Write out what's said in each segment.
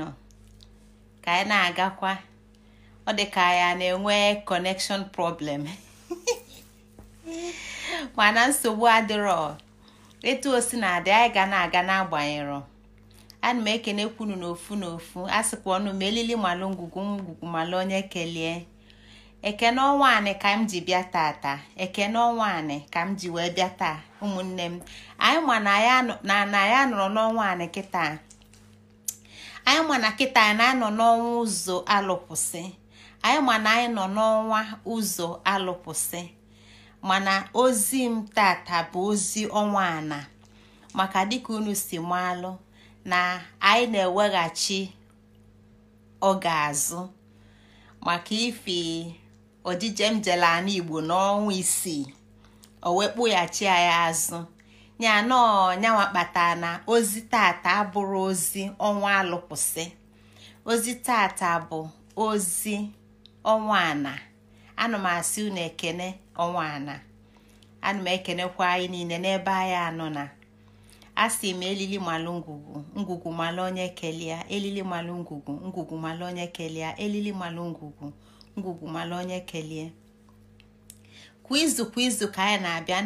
nọ ka anyị na-agakwa ọ dị ka ya na-enwe connection problem mana nsogbu adịrọ etu o na-adị anyị ga na-aga n'agbanyerọ ana m ekene kwunu n'ofu n'ofu a sịkwa ọnụ m elili malụ ngwugwu ngwugwu malụ onye kelee ekene ọnwa anị ka m ji bịa taata ekene ọnwa anị ka m ji wee bịa taa ụmụnne m anyị ma na anyị anọrọ n'ọnwa anị kịta anyị ma na kita anyị na-anọ n'ọnwa ụzọ alụpụsị anyị ma na anyị nọ n'ọnwa ụzọ alụpụsị mana ozi m tata bụ ozi ọnwa ana maka dịka unu si alụ na anyị na-eweghachi oge azụ maka ifi odije m igbo n'ọnwa isii o wee kpụghachi anyị azụ ya nyanwa kpatara na ozi tata abụrụ ozi ọnwa alụpụsị ozi tata bụ ozi ọnwa ana ana m asị unu ekene ọnwa ana ana m ekenekwa anyị niile n'ebe anyị anọ na asị m elili malụ ngwugwu ngwugwu malụ onye kelia elili malụ ngwugwu ngwugwu malụ onye kelia elili malụ ngwugwu ngwugwu malụ onye kelie kwa izu kwa izu ka anyị na-abịa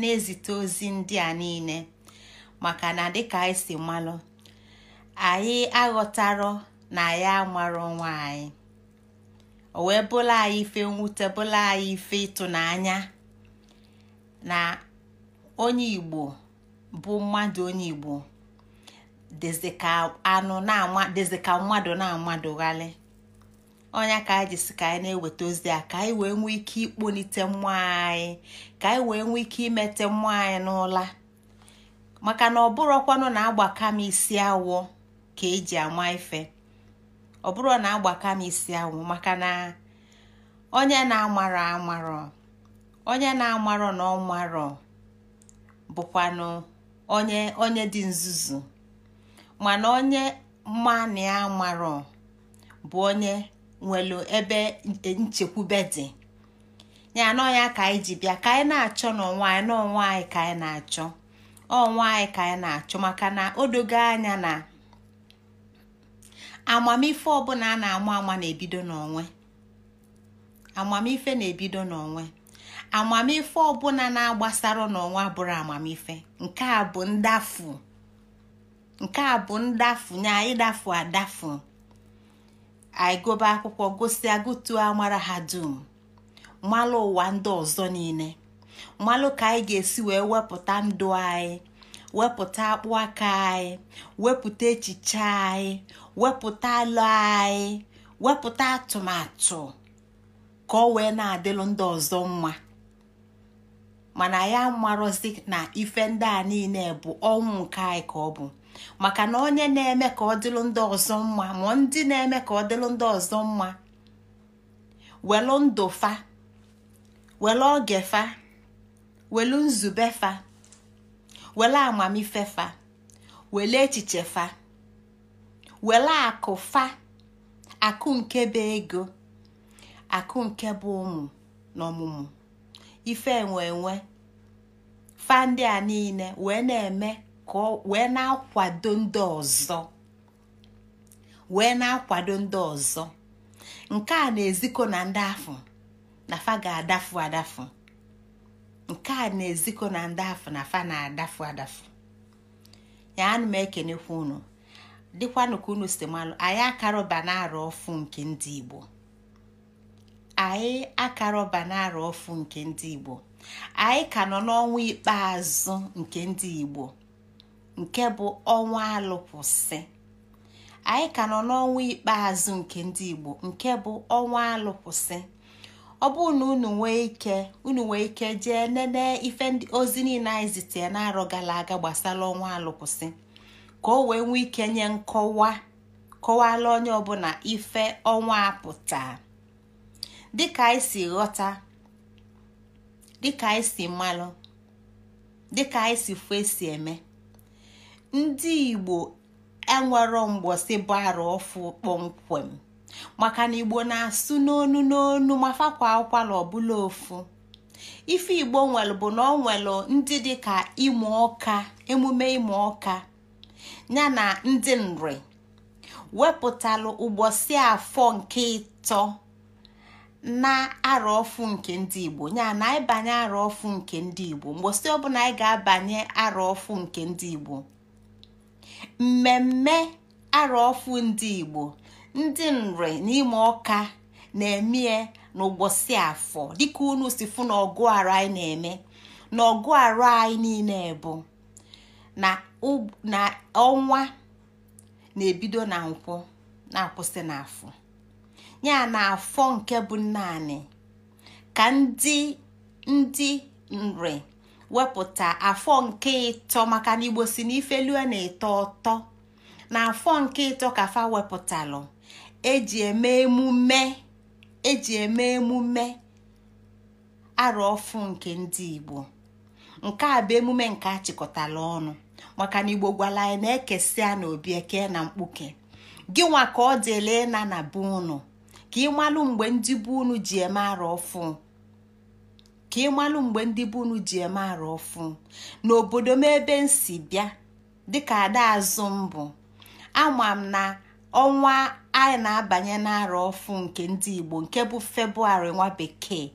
na-ezite ozi ndị a niile maka na dịka anyị si malụ anyị aghọtarọ na ya amarọ nwa anyị o wee bụla anyị ife nwute bụla anyị ife ịtụnanya na onye Igbo bụ mmadụ onye Igbo dịzị ka anụ na mmadụ na-amadụghalị onye ka anyị jisi ka anyị na-eweta ozi a ka anyị wee nwee ike ikponite mmụọ anyị ka anyị wee nwee ike imete mmụọ anyị n'ụla maka na ọ ọkwanụ na agbaka m isi awọ ka eji ama ife ọ bụrụ na agbaka m isi awụ maka na onye na-amarọ amarọ onye na-amarọ na ọ bụkwanụ onye onye dị nzuzu mana onye mania marọ bụ onye nwelu ebe nchekwube dị ya anọ ya ka anyị ji bịa ka anyị na-achọ n'onwe anyị n'onwe anyị ka anyị na-achọ ọnwa anyị ka anyị na-achọ maka na o dogo anya na amamife ọbụla a na-ama ama na-ebido n'onwe amamife na-ebido n'onwe amamife ọbụla na-agbasara n'onwe bụrụ amamife nke a bụ ndafu nke a bụ ndafu nya ịdafu adafu anyị gobe akwụkwọ gosi agụtuo amara ha dum malụ ụwa ndị ọzọ niile malụ ka anyị ga-esi wee wepụta ndụ anyị wepụta akpụ aka anyị wepụta echiche anyị wepụta alụ anyị wepụta atụmatụ ka ọ wee na-adịlụ ndị ọzọ mma mana ya marọzi na ife ndị a niile bụ ọnwụ nke anyị ka ọ maka na onye na-eme ka ọ dịlụ ndị ọzọ mma ma ndị na-eme ka ọ dịlụ ndị ọzọ mma welụ ndụ fa welụ oge fa welụ nzube fa welụ amamife fa welụ echiche fa welụ akụ fa akụ nke bụ ego akụ nke bụ ụmụ na ọmụmụ ife enwe enwe fa ndị a niile wee na-eme ka wee na-akwado ndị ọzọ wee na-akwado ndị ọzọ nke a na eziko na ndị afọ na fa ga-adafu adafu nke a na eziko na ndị afọ na fa na-adafu adafu ya anụ m ekenekwa unu dịkwanụ ka unu si malụ anyị akarọba na-arụ ọfụ nke ndị Igbo anyị akarọba na-arụ ọfụ nke ndị Igbo anyị ka nọ n'ọnwa ikpeazụ nke ndị Igbo nke bụ ọnwa alụkwụsị anyị ka nọ n'ọnwa ikpeazụ nke ndị Igbo nke bụ ọnwa alụkwụsị ọ bụrụ na unu nwee ike unu nwee ike jee nene ife ozi niile anyị zitere na-arọ gara aga gbasara ọnwa alụkwụsị ka o wee nwee ike nye nkọwa kọwala onye ọbụla ife ọnwa apụta dịka anyị si ghọta dịka anyị si malụ dịka anyị si fụ esi eme ndị igbo enwero mgbọsị bara ọfụ kpọmkwem maka na igbo na-asụ n'onu n'onu ma fakwa akwala ọbụla ofu ife igbo nwere bụ na ọ nwere ndị dịka ịmụ ọka emume ịmụ ọka ya na ndị nri wepụtalụ ụgbọsị afọ nke ịtọ na arọ ọfụ nke ndị igbo ya na ịbanye arọ ọfụ nke ndị igbo mgbosi ọbụla anyị ga-abanye arọ ọfụ nke ndị igbo mmemme arọfụ ndị igbo ndị nri n'ime ọka na-emie n'ụbọchị afọ dịka unu si fụ na arụ anyị na-eme na arụ anyị niile bụ na ọnwa na-ebido na nkwụ na-akwụsị n'afọ ya na afọ nke bụ naanị ka ndị ndị nri wepụta afọ nke ịtọ maka na igbo si na na-eto ọtọ na afọ nke ịtọ ka fa wepụtalụ eji eme emume eji eme emume arụ ọfụ nke ndị igbo nke a bụ emume nke achịkọtala ọnụ maka na igbo gwara anyị na-ekesịa na obi eke na mkpuke gị ka ọ dịla na na be unu ka ị malụ mgbe ndị be unu ji eme arụ ọfụ ka ịmalụ mgbe ndị bụ unu ji eme arụ ọfụ n'obodo m ebe m si bịa dịka ada azụ mbụ ama m na ọnwa anyị na-abanye n'arụ ọfụ nke ndị Igbo nke bụ febụwarị nwa bekee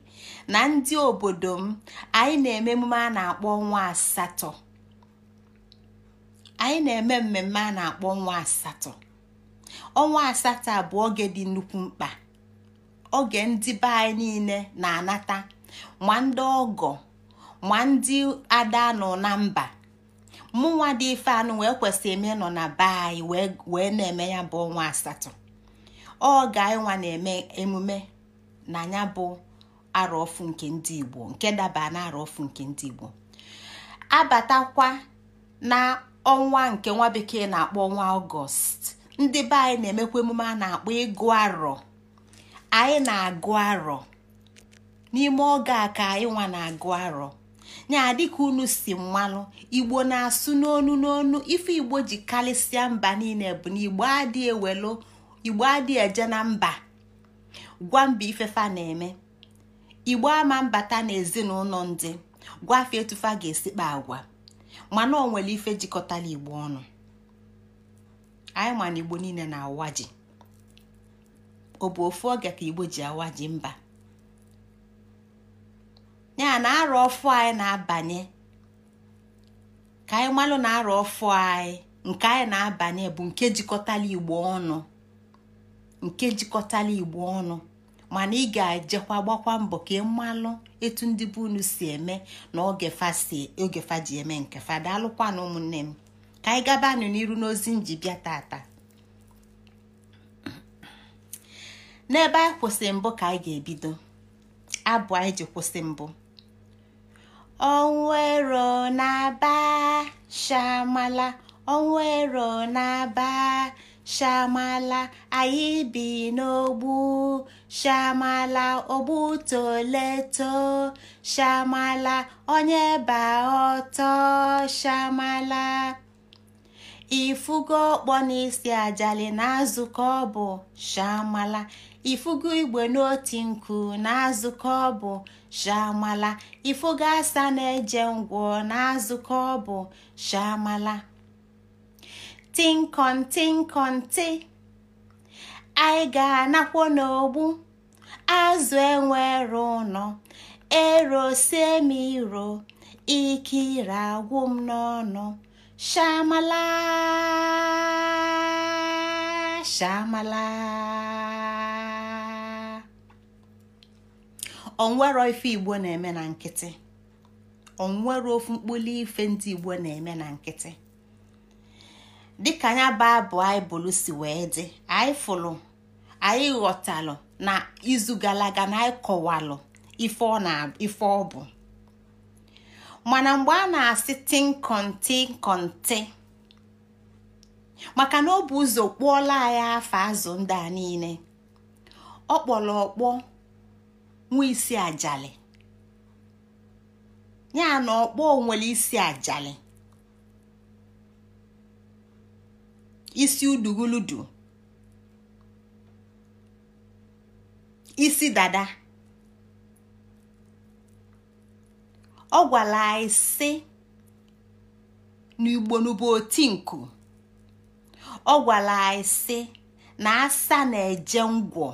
na ndị obodo m anyị na-eme emume a na-akpọ ọnwa asatọ anyị na-eme mmemme a na-akpọ ọnwa asatọ ọnwa asatọ bụ oge dị nnukwu mkpa oge ndị be anyị niile na-anata ma ndị ọgọ ma ndị ada nọ na mba mụnwa dị ife anụ wee kwesị eme nọ na be anyị wee na-eme ya bụ ọnwa asatọ ọ ga-enwa na-eme emume na ya bụ arọfu nke ndị Igbo nke daba na arọfu nke ndị Igbo abatakwa na ọnwa nke nwa bekee na-akpọ ọnwa ọgọst ndị be anyị na-emekwa emume a na-akpọ ịgụ arọ anyị na-agụ arọ n'ime oge a ka ịnwa na-agụ arọ nya dịka unu si mmanụ igbo na-asụ n'onu n'onu ife igbo ji kalisia mba niile bụ na igbo adịghị ewelu igbo adịghị eje na mba gwa mba ifefa na-eme igbo ama mbata na ezinụlọ ndị afọ etufa ga-esikpa agwa mana o nwere ife jikọtara igbo ọnụ anyị mana igbo niile na awaji ọ bụ ofu oge ka igbo ji awaji mba ya na arụ ọfụ anyị na-abanye ka anyị malụ na arọ ọfụ anyị nke anyị na-abanye bụ nke jikọtala igbo ọnụ nke jikọtala igbo ọnụ mana ị ga-ejekwa gbakwa mbọ ka ị malụ etu ndị be unu si eme na oge si ogefa ji eme nke fada daalụkwa na ụmụnne m ka anyị gabanụ n'iru n'ozi ji bịa tata n'ebe anyị kwụsị mbụ ka anyị ga-ebido abụ anyị ji kwụsị mbụ onwero na-aba shamala onwero na-aba shamala anyị bi n'ogbu shamala ogbu toleto shamala onye ba ọtọ shamala ifugo ọkpọ n'isi ajali na azụkọ ọ bụ shamala ifugo igwe n'oti nku na azụkọ ọ bụ shamala ifugo asa na-eje ngwọ na azụkọ ọ bụ shamala tinkọn anyị ga-anakwo n'ogbu azụ enwere ụnọ ero sie m iro ike ire agwụ m n'ọnụ shamala shamala onwero ife igbo na-eme na nkịtị onwere ofu mkpụli ife ndị igbo na-eme na nkịtị dịka anya baịbụl anyị si wee dị anyị fụlụ anyị ghọtalụ na izu gara aga na anyị kọwalụ ife ọ bụ mana mgbe a na-asị tinkọnti kọntị maka na ọ bụ ụzọ kpụọla anyị afọ azụ ndị a niile ọ kpọrọ ọkpọ nwee isi ajali ya na ọkpọ nwere isi ajali isi uduguludu isi dada ọ gwara anyị sị n'igbonubu otinku ọ gwara anyị sị na asa na-eje ngwọ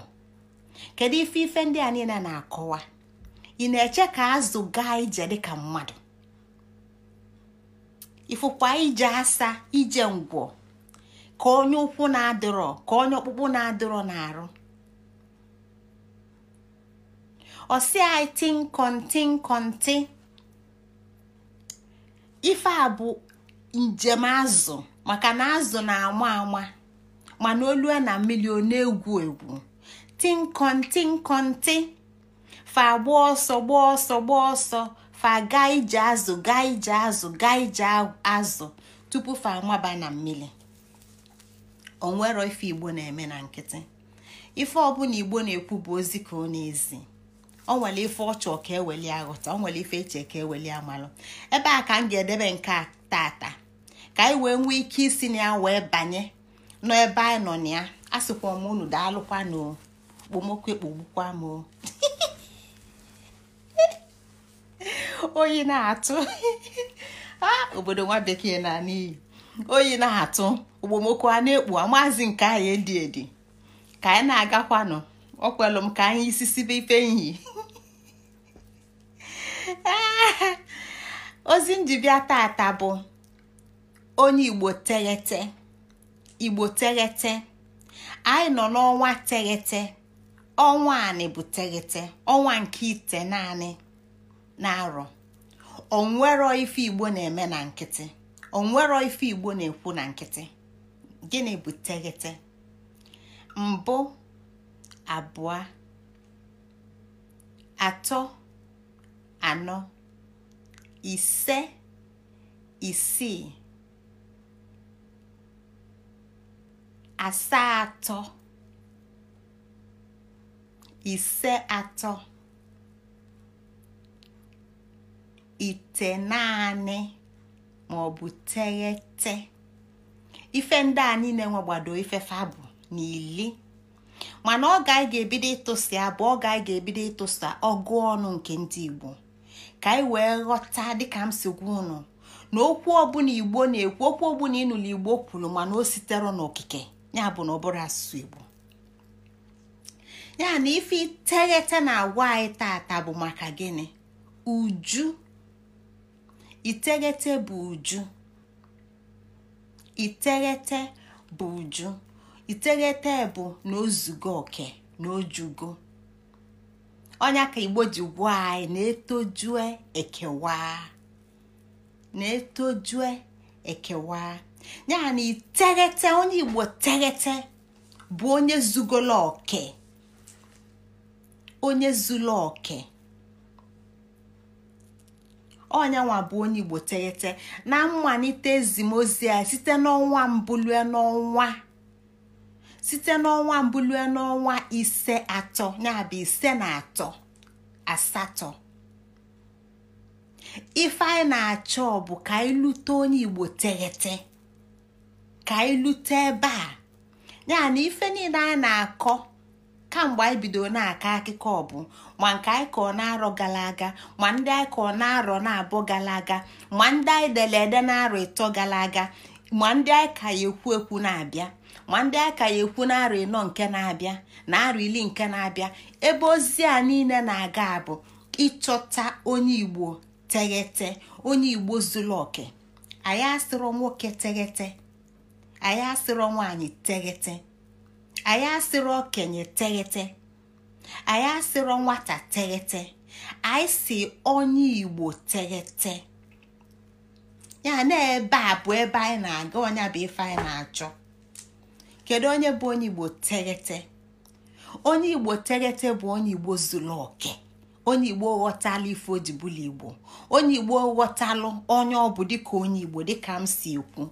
kedu ife ife ndị a niile na-akọwa ị na-eche ka azụ gaa ije dịka mmadụ ifukwa ije asa ije ngwọ ka onye ụkwụ na-adịrọ ka onye ọkpụkpụ na-adịrọ na-arụ ọsị anyị tinkọntinkọnti ife a bụ njem azụ maka na azụ na-ama ama mana olue na mmiri o na-egwu egwu tinkọntị nkọntị fa gba ọsọ gba ọsọ gba ọsọ fa gaa ije azụ gaa ije azụ gaa ije azụ tupu fa amaba na mmiri onwero ife igbo na-eme na nkịtị ife ọbụla igbo na-ekwu bụ ozi ka ọ na-ezi ọ nwere ife ọchọ ka eweli aghọta ọ nwere ife eche ka eweli amalụ ebe a ka m ga-edebe nke a tata ka anyị wee nwee ike isi na ya wee banye nọ ebe anyị nọ na ya a sịkwa m unu daalụkwa na okpomọkụ ekpogbukwa m oyi na-atụ ah, obodo nwa bekee na n'iyi oyi na-atụ okpomọkụ a na-ekpu amaazi nke anyị edi edi ka anyị na-agakwanụ ọ m ka anyị isi sibe ife nyi ozi njibia tata bụ onye igbo teghete igbo teghete anyị nọ n'ọnwa teghete ọnwa anị bụ teghete ọnwa nke ite naanị na-arọ onwero ife igbo na-eme na nkịtị onwero ife igbo na-ekwu na nkịtị gịnị bụ teghete mbụ abụọ atọ anọ ise isii asatọ ise atọ ite naanị ma ọ teghete ife ndị a niile ife fabụ na mana ọ anyị ga-ebido ịtụsi abụ oge anyị ga-ebido ịtụsa ọgụ ọnụ nke ndị igbo ka anyị wee ghọta dịka m si gwa unu na okwu ọbụla igbo na-ekwu okwu ọbụla ịnụlọ igbo kwuru mana o sitere n'okike ya bụ na ọbụrụ asụsụ igbo ya na ife iteghete na agwa anyị tata bụ maka gịnị uju iteghete bụ uju iteghete bụ uju iteghete bụ na ozugo oke na ojugo onye ka igbo ji anyị na-etojue ekewa na-etojue ekewa ya na iteghete onye igbo teghete bụ onye zugolo oke onye zulu oke ọnyanwa bụ onye igbo teghete na mmalite ezimozi ya site n'ọnwa mbulue n'ọnwa site n'ọnwa mbụ lue n'ọnwa ise atọ yabụ ise na atọ asatọ ife anyị na-achọ bụ ka anyị lute onye igbo teghete ka anyị lute ebe a ya na ife niile anyị na-akọ kamgbe anyị bidoro na-akọ akụkọ ọbụ, ma nke anyị kọọ na-arọ gara aga ma ndị anyị kọọ na-arọ na-abụ gara aga ma ndị anyị dere ede na-arọ ịtọ gara aga ma ndị anyị ka ya ekwu ekwu na-abịa ma ndị aka ya ekwu na arọ ịnọ nke na-abịa na arọ ili nke na-abịa ebe ozi a niile na-aga bụ ịchọta onye igbo teghete onye igbo zuru oke anyị asịrọ nwoke teghete anyị asịrọ nwaanyị teghete anyị asịrọ okenye teghete anyị asịrọ nwata teghete anyị si onye igbo teghete ya na ebe a bụ ebe anyị na-aga ọnya bụ ife anyị na-achọ kedu onye bụ onye igbo teghete onye igbo teghete bụ onye igbo zuru oke onye igbo ghọtala ife ojibụla igbo onye igbo ghọtalụ onye ọ bụ dịka onye igbo dịka m si ekwu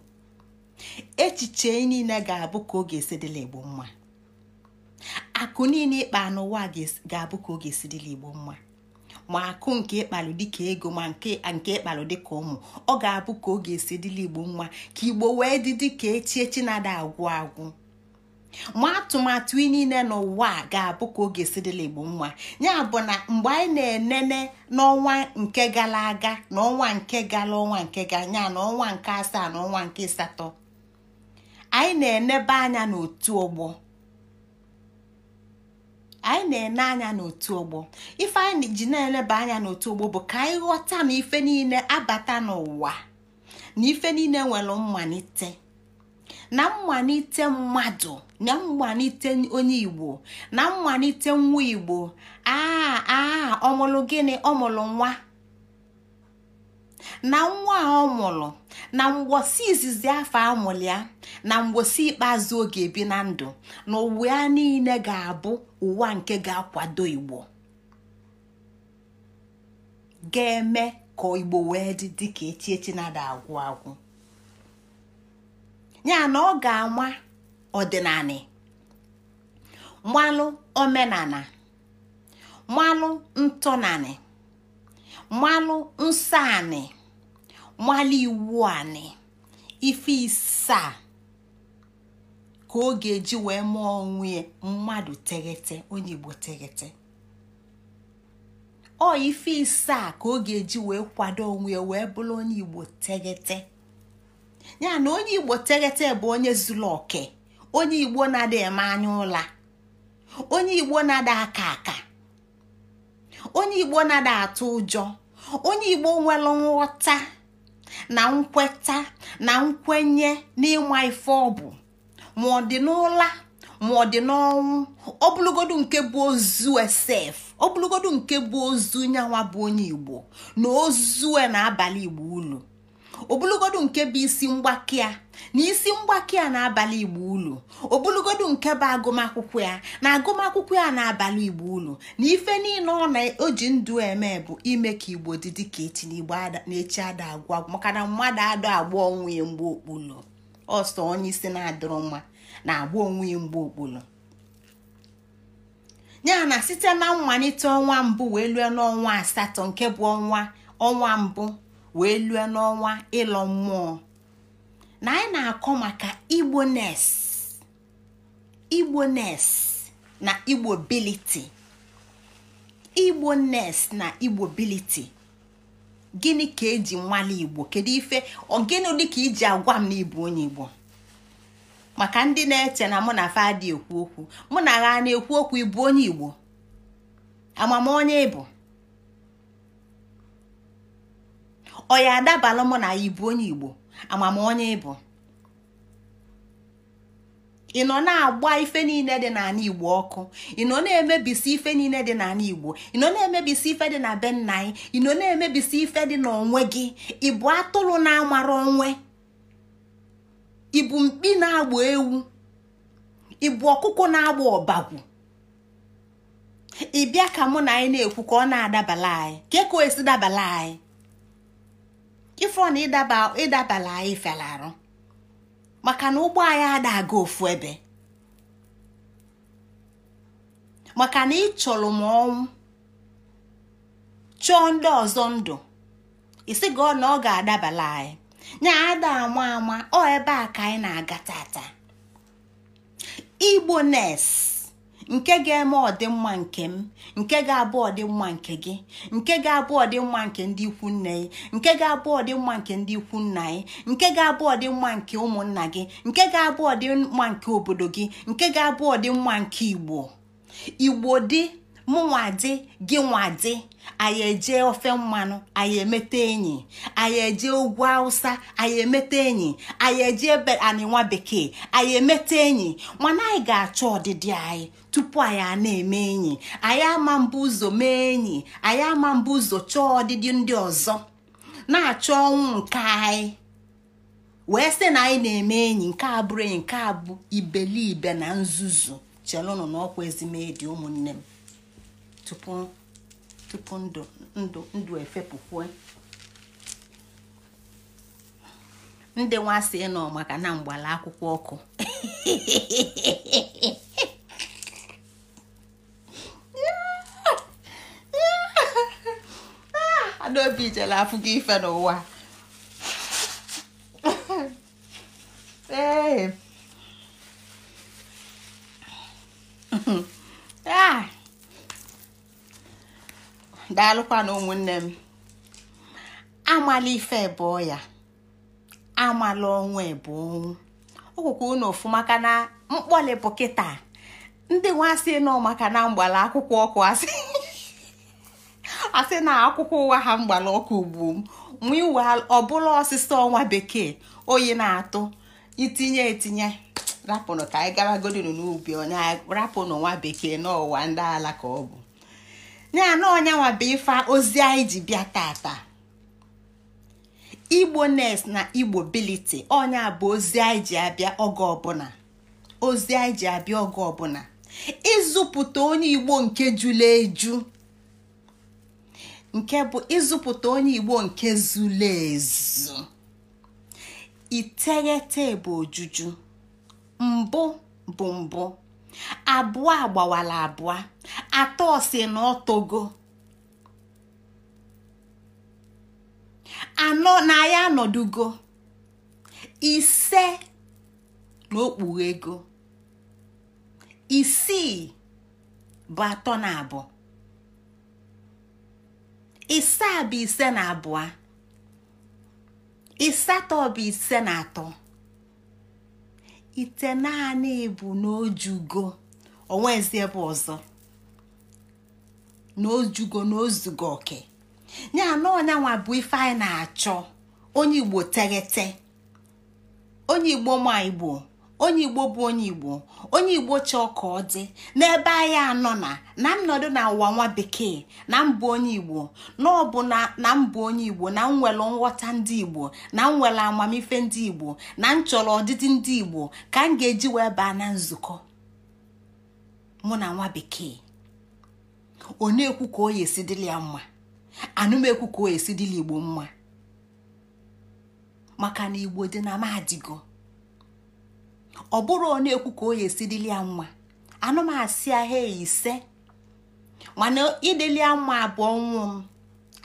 echiche niile ga-abụ ka ọ ga-esi igbo mma akụ niile ịkpa n'ụwa ga-abụ ka ọ ga-esi igbo mma ma akụ nke ịkpalụ dịka ego ma nke ịkpalụ dịka ụmụ ọ ga-abụ ka ọ ga-esi igbo mma ka igbo wee dị dịka echi echi na-ada agwụ agwụ ma atụmatụ niile n'ụwa a ga-abụ ka oge sirila igbo nwa ya bụ na mgbe anyị na-enene n'ọnwa nke gara aga n'ọnwa ọnwa nke gara ọnwa nke ga nya na ọnwa nke asaa na ọnwa nke asatọ anyị na-enebe anya n'otu ọgbọ anyị na-ene anya n'otu ọgbọ ife anyị ji na-eleba anya n'otu ọgbọ bụ ka anyị ghọta na ife niile abata n'ụwa na ife niile nwere mmalite na mmalite mmadụ na mmalite onye igbo na mmalite nwa igbo aa ah, aa ah, ọmụlụ gịnị ọmụlụ nwa na nwa a ọ mụrụ na mgbosi izizi afọ amụlịa na mgbosi ikpeazụ oge ebi na ndụ na ụwa ya niile ga-abụ ụwa nke ga-akwado igbo ga-eme ka igbo wee dị dịka echi echi na-ada agwụ agwụ ya na ọ ga-ama ọdịnala mmalụ omenala mmalụ ntọnanị mmalụ nsọ anị mmalụ iwu anị ife isaa ka ọ ga-eji wee mụọ onwe mmadụ teghete onye Igbo teghete ọ ife isaa ka ọ ga-eji wee kwado onwe ya wee bụrụ onye Igbo teghete ya na onye Igbo teghete bụ onye zuru onye igbo na eme anya ụla onye igbo na-ada aka aka onye igbo na-ada atụ ụjọ onye igbo nwere nghọta na nkweta na nkwenye n'ịma ife ọbụ bụ ma ọ dị n'ụla ma ọ dị n'ọnwụ ọbụlụgodu nke bụ ozu esef ọbụlụgodu nke bụ ozu nyanwa bụ onye igbo na ozu na abalị igbo ulu obulugodu nke bụ isi mgbakea na isi mgbakea na-abalị igbo ulu obulugodu nke bụ agụmakwụkwọ ya na agụmakwụkwọ ya na-abalị igbo ulu na ife niile ọ na-oji ndụ eme bụ ime ka igbo dị dị ka echi na igbo na-echi ada agwụ agwụ maka na mmadụ adọ agba onwe ya mgbe okpulu ọsọ onye isi na-adịrọ mma na-agba onwe ya mgbe okpulu ya na site na mmalite ọnwa mbụ wee lue n'ọnwa asatọ nke bụ ọnwa ọnwa mbụ wee lue n'ọnwa ịlọ mmụọ na anyị na-akọ maka igbo nes igbo nes na igbo biliti igbo nes na igbo biliti gịnị ka eji nwale igbo kedu ife dị dịka iji agwa m na ibu onye igbo maka ndị na-eche na mụ na fadi ekwu okwu mụ na agha na-ekwu okwu ịbụ onye igbo amamonye ịbụ ọ ya adabala mụ na ibu onye igbo amamonye onye ịbụ ị nọ na-agba ife niile dị n'ala igbo ọkụ ị nọ na-emebisi ife niile dị n'ala igbo ị nọ na-emebisi ife dị na be nna anyị ị nọ na-emebisi ife dị n'onwe gị ị bụ atụrụ na-amara onwe ị mkpi na-agba ewu ị bụ ọkụkọ na-agba ọbagwu ị bịa ka mụ na anyị na-ekwu ka ọ na-adabala anyị ka ka o esi dabala anyị ife na ịdabala anyị fela arụ maka na ụgbọ anyị ada aga ofu ebe maka na ịchọrọ m ọnwụ chọọ ndị ọzọ ndụ isi gị na ọ ga-adabala anyị nya ada ama ama ọ ebe a ka anyị na-aga tata igbo nes nke ga-eme ọdịmma nke m nke ga-abụ ọdịmma nke gị nke ga-abụ ọdịmma nke ndị ikwu nne gị nke ga-abụ ọdịmma nke ndị ikwu nna gị nke ga-abụ ọdịmma nke ụmụnna gị nke ga-abụ ọdịmma nke obodo gị nke ga-abụ ọdịmma nke igbo igbo dị mụnwadi gị nwadi anyị eje ofe mmanụ anyị emete enyi anyị eje ugwu awụsa anyị emete enyi anyị eje ebe bekee anyị emete enyi nwana anyị ga-achọ ọdịdị anyị tupu anyị a na-eme enyi anyị ama mbụ ụzọ mee enyi anyị ama mbụ ụzọ chọọ ọdịdị ndị ọzọ na-achọ ọnwụ nke anyị wee sị na anyị na-eme enyi nke abụrụ enyi nke abụ bụ ibelibe na nzuzu chelụnụ na ọkwa ezimedi ụmụnne m tupu ndụ efepụkwe ndị sị nọ maka na mgbala akwụkwọ ọkụ adaobi jela afụ ife n'ụwa ee daalụkwa na ụmụnne m amala ife ebụọ ya amala ọnwa ebu ọnwụ unu ofụma ka na mkpọli bụ kịta ndị nwa nọ maka na mgbala akwụkwọ ọkụ asị na akwụkwọ ụwa ha mgbala ọkụ ugbu m wiwa ọbụla ọsịsa ọnwa bekee oyi na-atụ itinye etinye rapụnụ ka anyị gara godinu n'ubi onye rapụnụ nwa bekee n'ụwa ndị ala ka ọ bụ ya na bụ ife ozi anyị ji bịa tata igbo nes na igbo biliti bụ ozi anyị ji abịa oge ọbụla ozi anyị ịzụpụta onye igbo nke jụla eju nke bụ ịzụpụta onye bụ ojuju mbụ bụ mbụ abụọ agbawala abụọ atọ si na ọtogo anọ na ya anọdugo ise na okpughe ego isii bụ atọ na abụọ a bụ ise na abụọ isatọ bụ ise na atọ ite naanị bụ na ojugo onwezi ebe ọzọ n'ojugo n'ozugo oke ya na bụ ife anyị na-achọ onye igbo teghete onye igbo ma igbo onye igbo bụ onye igbo onye igbo chọọ ka ọ dị n'ebe anyị anọ na na nnọdụ na ụwa nwa bekee na mbụ onye igbo na ọ na mbụ onye igbo na nwere nghọta ndị igbo na nwere amamife ndị igbo na m chọrọ ọdịdị ndị igbo ka m ga-eji wee baa na nzukọ mụ na nwa bekee ọ na-ekwu ka o yesi dịla ya mma anụmekwu ka o yesi dịla igbo mma maka na igbo dị na madigo ọ bụrụ na-ekwu ka o ya nwa dịli asị mma ise mana idili ya abụọ nwụ m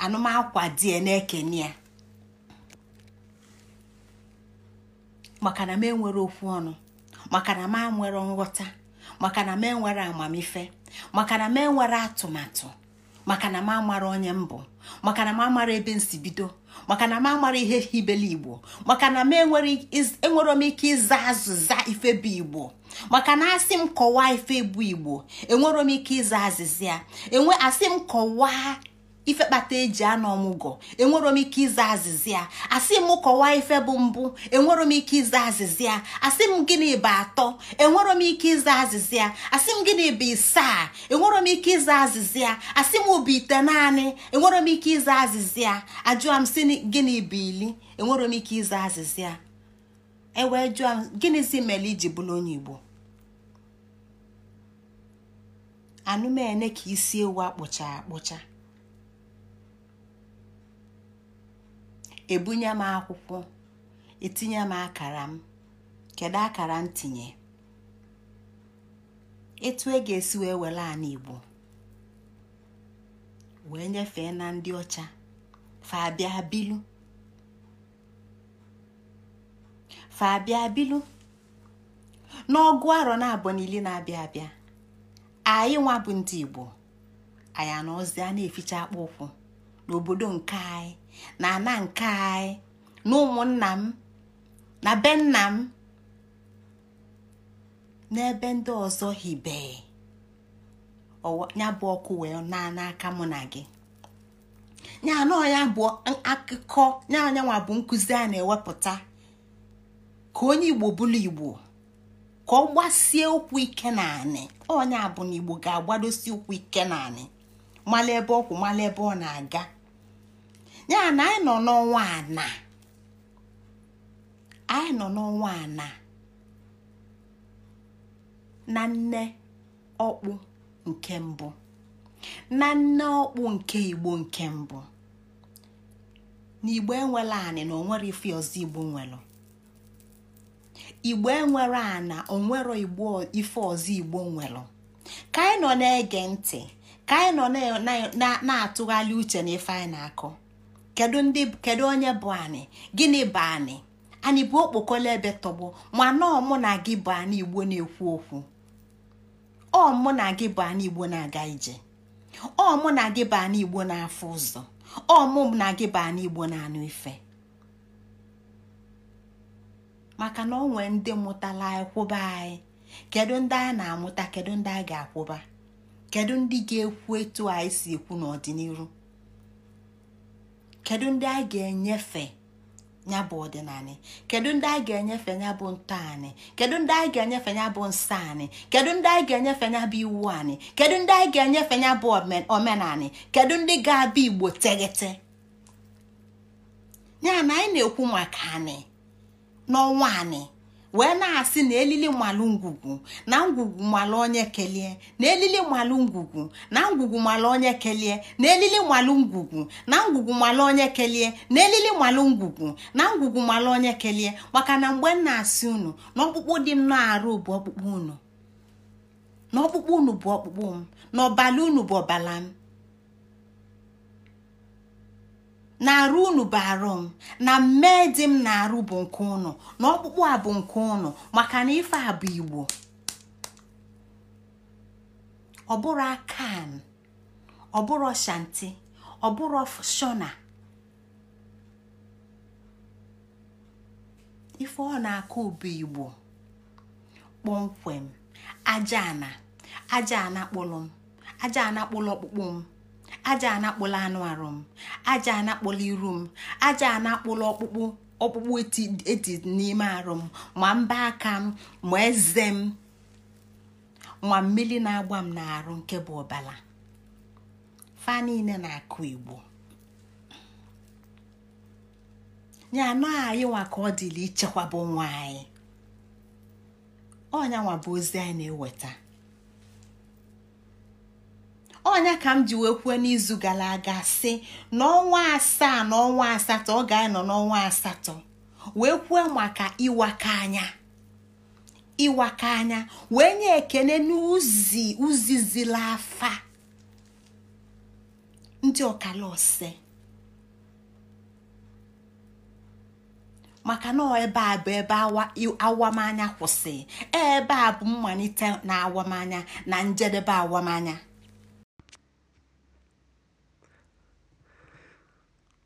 anụmakwa die na-ekene ya maka na m enwere okwu ọnụ maka na m nwere nghọta maka na m enwere amamife maka na m enwere atụmatụ maka na m amara onye mbụ maka na m amara ebe si bido maka na m amara ihe hibele igbo maka na m enwere m ike ịza azịza ife bụ igbo maka na asị m kọwaa ife bụ igbo enwere m ike ịza azịza ya enwe asị m kọwaa ife kpata eji anọ ọmụgwọ enwero m ike ịza azịza ya asị m kọwaa ife bụ mbụ enwero m ike ịza azịza ya asị m gịnị bụ atọ enwero m ike ịza azịza ya asị m gịnị bụ isaa enwero m ike ịza azịza ya asị m bụ ite naanị enwero m ike ịza azịza ya ajụọ m si gịnị bụ ili enwero m ike ịza azịza ewee jụọ m si mere iji bụrụ onye Igbo anụmene ka isi ewu akpụcha akpụcha ebunye m akwụkwọ etinye m akara m kedu akara m tinye etu e ga-esi wee were Igbo wee nyefee na ndị ọcha fabia bilu fabia bilu n'ọgụ arọ na-abụ n'ili na-abịa abịa anyị nwa bụ ndị Igbo anyị na eficha akpa ụkwụ n'obodo nke anyị na ana nke anyị na ụmụnna m na be nna m n'ebe ndị ọzọ hibe ya bụ ọkụ wee anọ n'aka mụ na gị ya na ya bụ akụkọ ya anyanwa bụ nkụzi a na-ewepụta ka onye igbo bụrụ igbo ka ọ gbasie ụkwụ ike na anị onye abụ na igbo ga-agbadosi ụkwụ ike na anị mala ọkwụ mala ebe ọ na-aga ya na anyị nọ n'ọnwa ana anyị nọ n'ọnwa ana na nne ọkpụ nke mbụ na nne ọkpụ nke igbo nke mbụ na igbo enwela anị na onwere ife ọzọ igbo nwere igbo enwere ana onwere igbo ife ọzọ igbo nwere ka anyị nọ na-ege ntị ka anyị nọ na-atụgharị uche na ife anyị na-akọ kedu ndị kedu onye bụ anyị gịnị bụ anyị anyị bụ okpokolo ebe tọgbọ ma nọọ mụ na gị bụ anyị igbo na-ekwu okwu ọ mụ na gị bụ anyị igbo na-aga ije ọ mụ na gị bụ anyị igbo na-afụ ụzọ ọ mụ na gị bụ anyị igbo na-anụ ife maka na ọ nwee ndị mụtala akwụba anyị kedu ndị anyị na-amụta kedu ndị anyị ga-akwụba kedu ndị ga-ekwu etu anyị si ekwu n'ọdịnihu kedu ndị anyị ga-enyefe ya bụ ọdịnala kedu ndị anyị ga-enyefe ya bụ ntọ anyị kedu ndị anyị ga-enyefe ya bụ nsọ anyị kedu ndị anyị ga-enyefe ya bụ iwu anyị kedu ndị anyị ga-enyefe ya bụ kedu ndị ga-abịa igbo teghete ya na anyị na-ekwu maka anyị n'ọnwa anyị wee na-asị na elili malụ ngwugwu na ngwugwu malụ onye kelie na elili malụ ngwugwu na ngwugwu malụ onye kelie na elili malụ ngwugwu na ngwugwu malụ onye kelie na elili malụ ngwugwu na ngwugwu malụ onye kelie maka na mgbe m na-asị unu na ọkpụkpụ dị m na-arụ bụ ọkpụkpụ unu na ọkpụkpụ unu bụ ọkpụkpụ m na ọbala unu bụ ọbala m na-arụ unu bụ arụ m na mmee dị m na-arụ bụ nke ụnụ na ọkpụkpụ a bụ nke ụnụ maka na ife a bụ igbo ọ bụrụ akan ọ bụrụ shanti ọ bụrụ shona ife ọ na-akụ ụbụ igbo kpọmkwem aja ana aja ana kpụrụ m aja ana ọkpụkpụ m aja anakpụla anụ arụ m aja anakpụla iru m aja anakpụla ọkpụkpụ ọkpụkpụ eti n'ime arụ m ma mba aka m ma eze m ma mmiri na-agba m n'arụ nke bụ ọbala fa niile na-akụ igbo ya anọ anyị nwa ka ọ dịla ichekwaba onwe anyị ọnyanwa bụ ozi anyị na-eweta ọnya ka m ji wee kwuo n'izu gara aga sị n'ọnwa asaa na ọnwa asatọ ọ ga-anọ n'ọnwa asatọ wee kwuo maka ịwaka anya ịwaka anya wee nye ekele n'uzi uzi afa ndị ọkala ọsị maka na ebe a bụ ebe awamanya kwụsị ebe a bụ mmalite na awamanya na njedebe awamanya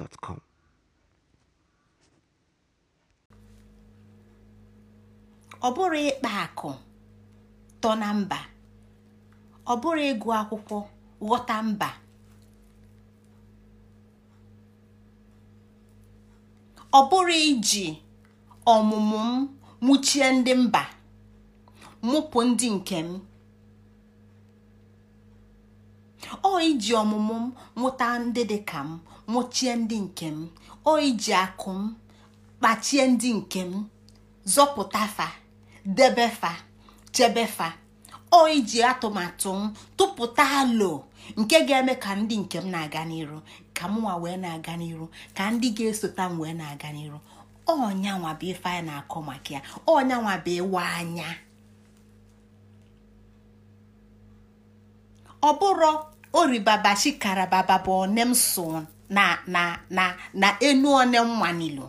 ọ bụrụ ịkpa akụ tọ na mba ọ bụrụ ịgụ akwụkwọ ghọta mba ọ bụrụ iji ọmụmụ m mụchie ndị mba mụpụ ndị nke m ọ iji ọmụmụ m mụta ndị dị ka m mụchie ndị nke m oyi ji akụ m kpachie ndị nke m zọpụta fa debe fa chebe fa oyi ji atụmatụ m tụpụta alo nke ga-eme ka ndị nke m na-aga n'iru ka mụwa wee na-aga n'iru ka ndị ga-esota m wee na-aga n'iru ọnyanwa bụ ife anyị na-akọ maka ya ọnyanwa bụ ịwa anya ọ bụrụ oribaba baba bụ onem son na na na na enu one mmanilu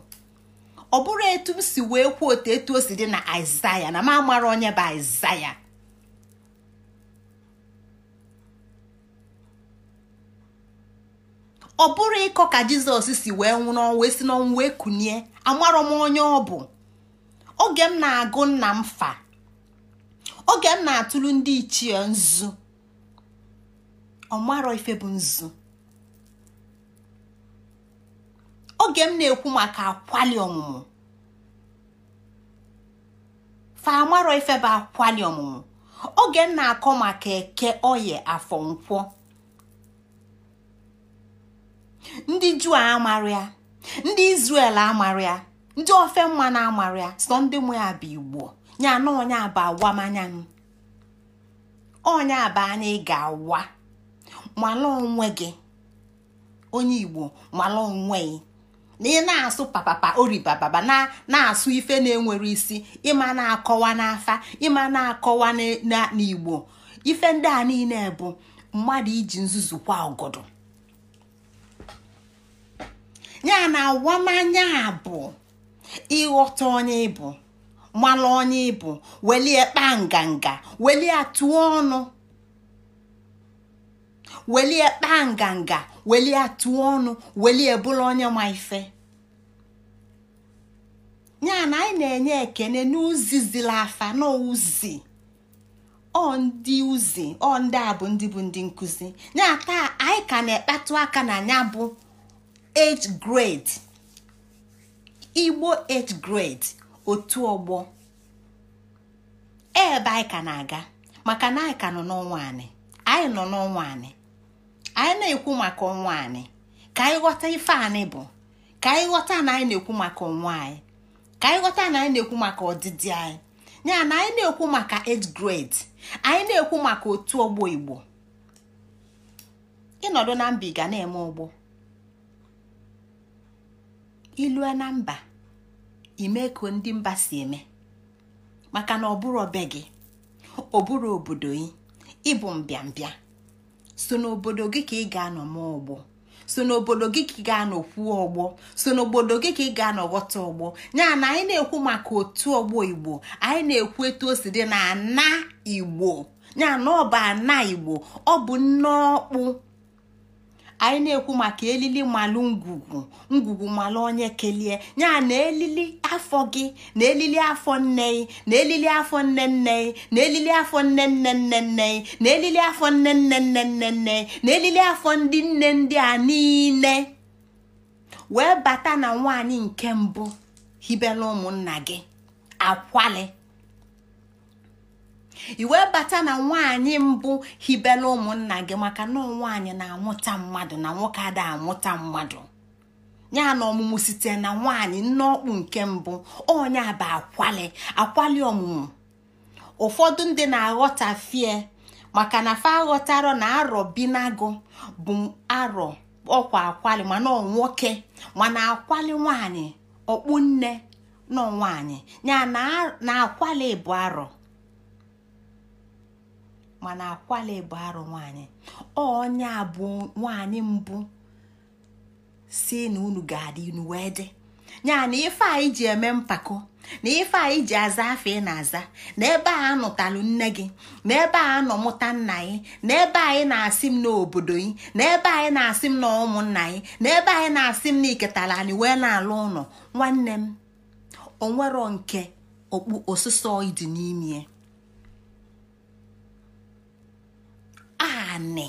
ọ bụrụ etu m si wee kwuo otu etu o si dị na aịzaya na m amara onye bụ aịzaya ọ bụrụ ịkọ ka jizọs si wee nwụrụ ọnwụ esi n'ọnwụ wee kunie amarọ m onye ọ bụ oge m na-agụ nna m fa oge m na-atụrụ ndị ichie nzu ọmarọ ife bụ nzu oge m na-ekwu maka akwali ọmụmụ fa amarọ ifebe akwali ọmụmụ oge m na-akọ maka eke oye afọ nkwọ ndị juu amara ya ndị izrel amara ya ndị ofe mma na amara ya sọ ndị mụ ya bụ igbo ya na onye aba awamanya m onye aba anya ị ga-awa mala onwe gị onye igbo mala onwe gị na ị na-asụ papapa oribababa na na-asụ ife na-enwere isi ịma na-akọwa n'afa ịma na-akọwa n'igbo ife ndị a niile bụ mmadụ iji nzuzu kwa ọgọdọ ya na awamanya bụ ịghọta onye ịbụ mmalụ onye ịbụ welie kpaa nganga welie tụọ ọnụ welie kpaa nganga welie atụọ ọnụ welie bụla onye ma ife ya na anyị na-enye ekene n'uzi zila afa n'uzi ọ ndị uzi ọ ndị a bụ ndị bụ ndị nkụzi ya taa anyị ka na-ekpatụ aka na ya bụ age grade igbo age grade otu ọgbọ ebe anyị ka na-aga maka na anyị ka nọ n'ọnwa anyị anyị nọ n'ọnwa anyị anyị na-ekwu maka ọnwa anyị ka anyị ghọta ife anyị bụ ka anyị ghọta na anyị na-ekwu maka ọnwa anyị ka anyị ghọta na anyị na-ekwu maka ọdịdị anyị ya na anyị na-ekwu maka age grade anyị na-ekwu maka otu ọgbọ igbo ịnọdụ na mba ịga na-eme ụgbọ ilue na mba ime ka ndị mba si eme maka na ọ bụrụ gị ọ bụrụ obodo gị ịbụ mbịambịa so n'obodo gị ka ị ga-anọ ma ọgbọ so n'obodo gị ka ị ga-anọ kwuo ọgbọ so n'obodo gị ka ị ga-anọ ọgbọ ya na anyị na-ekwu maka otu ọgbọ igbo anyị na-ekwu etu o si dị na ana igbo ya na ọ bụ ana igbo ọ bụ nne ọkpụ anyị na-ekwu maka elili malụ ngwugwu ngwugwu malụ onye kelie ya na elili afọ gị na elili afọ nne gị na elili afọ nne nne gị na elili afọ nne nne nne nne na elili afọ nne nne nne nne nne na elili afọ ndị nne ndị a niile wee bata na nwaanyị nke mbụ hibela ụmụnna gị akwalị. i wee bata na nwaanyị mbụ hibela ụmụnna gị maka na nwaanyị na-amụta mmadụ na nwoke ada amụta mmadụ ya na ọmụmụ site na nwaanyị nne ọkpụ nke mbụ onye bụ akwali akwali ọmụmụ ụfọdụ ndị na-aghọtafie maka na fa aghọtara na arọ binago bụ arọ ọkwa akwali mana nwoke mana akwali nwaanyị ọkpụ nne nọ nwaanyị ya na akwali bụ arọ mana akwala bụ arụ nwanyị onye abụ nwanyị mbụ si na unu ga-adị unu wee dị na ife anyị ji eme mpako na ife anyị ji aza afọ ị na-aza na ebe a nụtalụ nne gị na ebe a nọ mụta nna gị na ebe anyị na-asị m n'obodo gị na ebe anyị na-asị m na ụmụnna gị na ebe anyị na-asị m na iketala anyị wee na-alụ ụlọ nwanne m onwero nke okpu osụsọ dị n'ime anị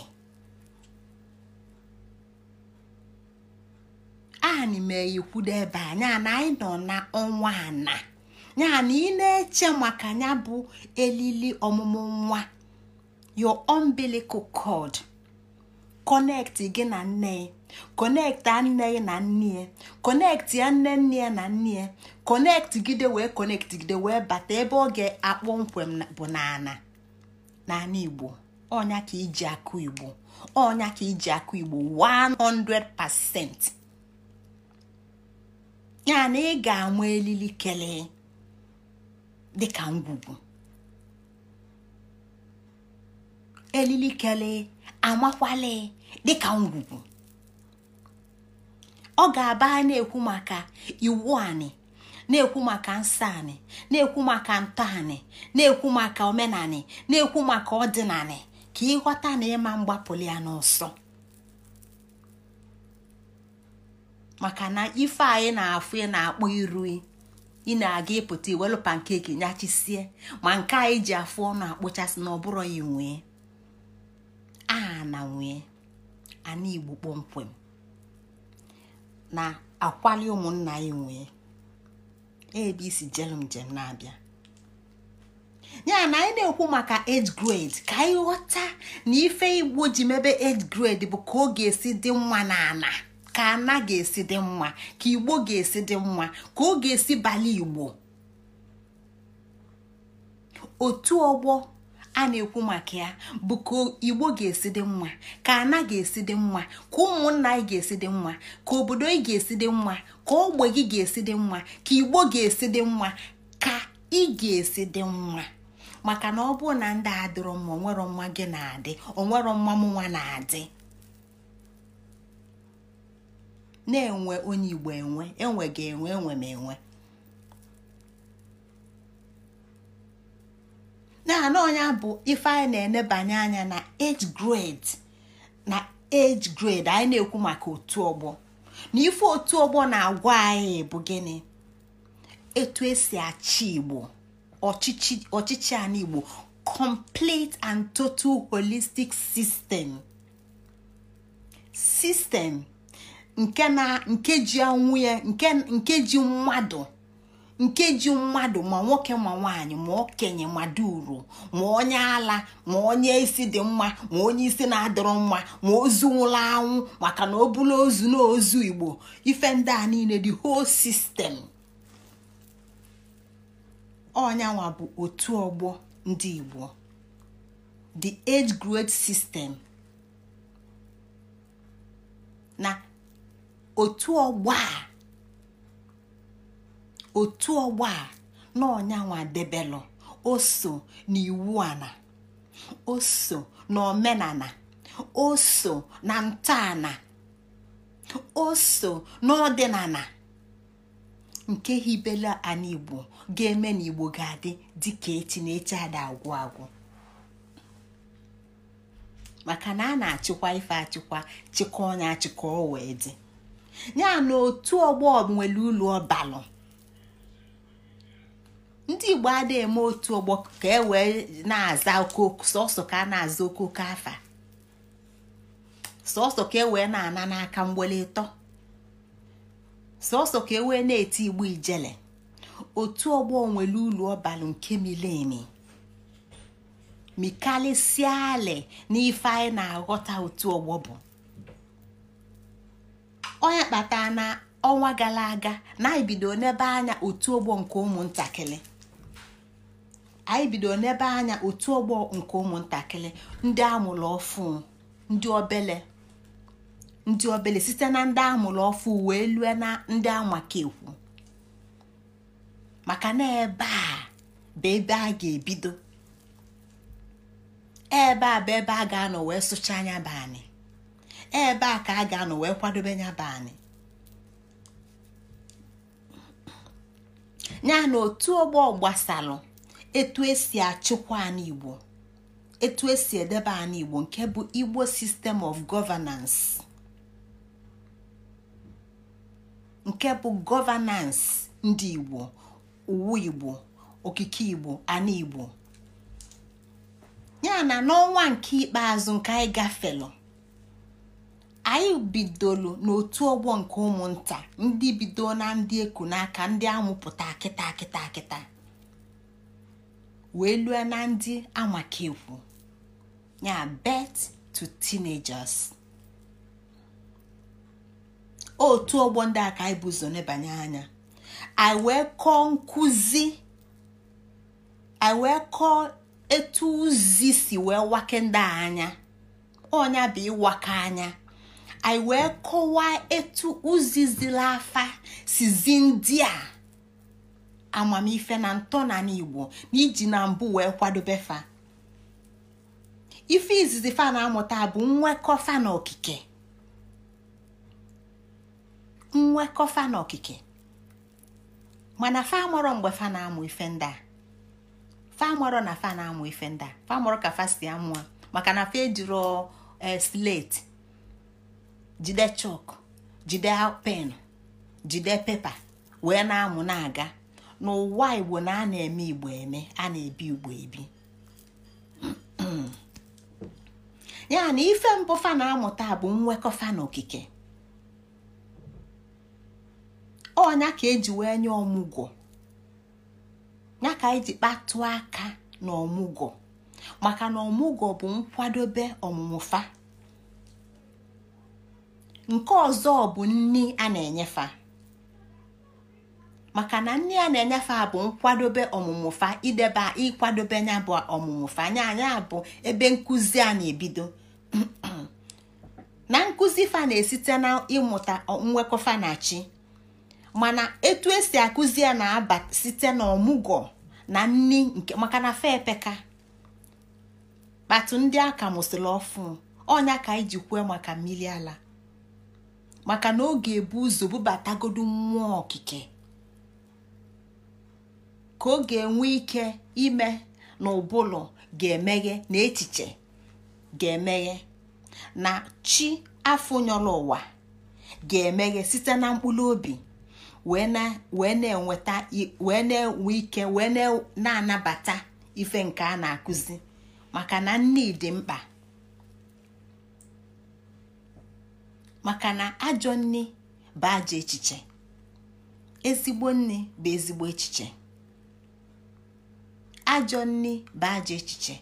anị meyikwudo ebe a ya na anyị nọ n'ọnwa ana ya na ị na-eche maka ya bụ elili ọmụmụ nwa your umbilical cord kọnekti gị na nne gị kọnekti nne na nne ya kọnekti ya nne nne na nne ya kọnekti gide wee gị gide wee bata ebe ọ ga-akpọ bụ n'ana n'ana Igbo ọnya ka iji akụ igbo ọnya ka iji akụ igbo 100% ya na ị ga-anwa elili kelee dịka ngwugwu elili kelee amakwale dịka ngwugwu ọ ga-aba na-ekwu maka iwu anị na-ekwu maka nsọ anị na-ekwu maka ntọ anị na-ekwu maka omenanị na-ekwu maka ọdịnanị ka ịghọta na ịma mgbapụli ya n'ọsọ maka na ife anyị na-afụ ị na-akpọ iru ị na-aga ịpụta iwelu pankeki nyachisie ma nke anyị e ji afụ ọnụ akpụchasị na ọ ya nwee aha na nwee ana igbo kpọmkwem na akwali ụmụnna anyị nwee ebe isi jelum njem na-abịa ya na anyị na-ekwu maka age grade ka anyị ghọta na ife igbo ji mebe age grade bụ ka ọ ga-esi dị nwa na ana ka ana ga-esi dị mma ka igbo ga-esi dị mma ka ọ ga-esi bala igbo otu ọgbọ a na-ekwu maka ya bụ ka igbo ga-esi dị mma ka ana ga-esi dị mma ka ụmụnna anyị ga-esi dị mma ka obodo anyị ga-esi dị mma ka ogbe gị ga-esi dị mma ka igbo ga-esi dị mma ka ị ga-esi dị mma maka na ọ bụrụ na ndị adịrọ mma onwero mma gị na-adị onwero mma m nwa na-adị na-enwe onye igbo enwe enwe ga enwe enwe m enwe naanị ọnya bụ ife anyị na-enebanye anya na age grade na age grade anyị na-ekwu maka otu ọgbọ na ife otu ọgbọ na-agwa anyị bụ gịnị etu esi achị igbo ọchịchị a igbo complete and total holistic system system nke na nke ji anwụ ya nke ji mmadụ nke ji mmadụ ma nwoke ma nwaanyị ma okenye ma duru ma onye ala ma onye isi dị mma ma onye isi na-adọrọ mma ma ozu nwụrụ anwụ maka na o bụla ozu n'ozu igbo ife ndị a niile dị hol system ọnyanwa bụ otu ọgbọ ndị Igbo the age grade system na otu ọgbọ a otu ọgbọ a na ọnyanwa debelụ o so n'iwu ana o so n'omenala o so na ntọala o so n'ọdịnala nke hibela ala ga-eme na igbo ga-adị dịka echi na echi ada agwụ agwụ maka na a na-achịkwa ife achịkwa chịkọ onye achịkọ o wee dị ya na otu ọgbọ nwere ụlọ ọbalụ ndị igbo ada eme otu ọgbọ ka e wee na-aza okooko sọsọ ka a na-aza okooko afa sọsọ ka e wee na-ana n'aka mgbele ka e wee na-eti igbo ijele otu ọgbọ nwere ulu ọbalụ nke mileni mikalisia na n'ife anyị na-aghọta otu ọgbọ bụ onye kpatara na ọnwa gara aga na anyị bido n'ebe anya otu ọgbọ nke ụmụntakịrị anyị bido n'ebe anya otu ọgbọ nke ụmụntakịrị ndị amụrụ ọfụ ndị obele ndị obele site na ndị amụrụ ọfụ wee lue na ndị amakekwu maka na ebe a bụ ebe a ga-ebido ebe a bụ ebe a ga-anọ wee sụcha anya bụ anyị ebe a ka a ga-anọ wee kwadobe nya bụ anyị ya na otu ọgbọ gbasalụ etu esi achịkwa anyị igbo etu esi edebe anyị igbo nke bụ igbo system of governance nke bụ governance ndị igbo uwe igbo okike igbo ana igbo ya na n'ọnwa nke ikpeazụ nke anyị gafelu anyị bidolu n'otu ọgbọ nke ụmụnta ndị bido na ndị eku n'aka ndị amụpụta akịta akịta akịta wee lue na ndị amakekwu ya bet to teenagers otu ọgbọ ndị aka anyị bụ nebanye anya anyị wee kọọ nkụzi anyị wee kọọ etu ụzi si wee wake ndị anya ọnya bụ ịwaka anya anyị wee kọwaa etu ụzi zila afa sizi ndị a amamife na ntọ na igbo na iji na mbụ wee kwadobe fa ife izizi fa na-amụta bụ nwekọ fa na okike nwekọ fa na okike mana famọrọ mgbe fa na-amụ ife ndị a fa na fa na-amụ ife ndị a ka fa si amụọ maka na fa ejiro e, slate jide chọk jide pen jide pepa wee na-amụ na-aga n'ụwa igbo na a na-eme igbo eme a na-ebi igbo ebi ya na ife mbụ fa na-amụta bụ nwekọ fa na okike ọnya ka eji wee nye ọmụgwọ ya ka eji kpatụ aka na ọmụgwọ maka na ọmụgwọ bụ nkwadobe ọmụmụfa nke ọzọ bụ nni a na-enyefa maka na nne a na-enyefe a bụ nkwadobe ọmụmụfa idebe ịkwadobe ya bụ ọmụmụfa anya anya bụ ebe nkụzi a na-ebido na nkụzi fa na-esite na ịmụta nwekọfa na chi mana etu esi akụzi ya na-aba site n'ọmụgwọ na nni nke maka na fe epeka kpatụ ndị aka mụsịrị ọfụ ọnya ka anyị jikwe maka mmiri ala maka na oge ebu ụzọ bubatagodu mmụọ okike ka ọ ga-enwe ike ime na ụbụlụ ga-emeghe na echiche ga-emeghe na chi afọ nyọrọ ụwa ga-emeghe site na mkpụrụ obi wee na-enweta wee na-enwe ike wee na-anabata ife nke a na-akụzi maka na nne dị mkpa maka na ajọ nne bụ ajọ echiche ezigbo nne bụ ezigbo echiche ajọ nne bụ ajọ echiche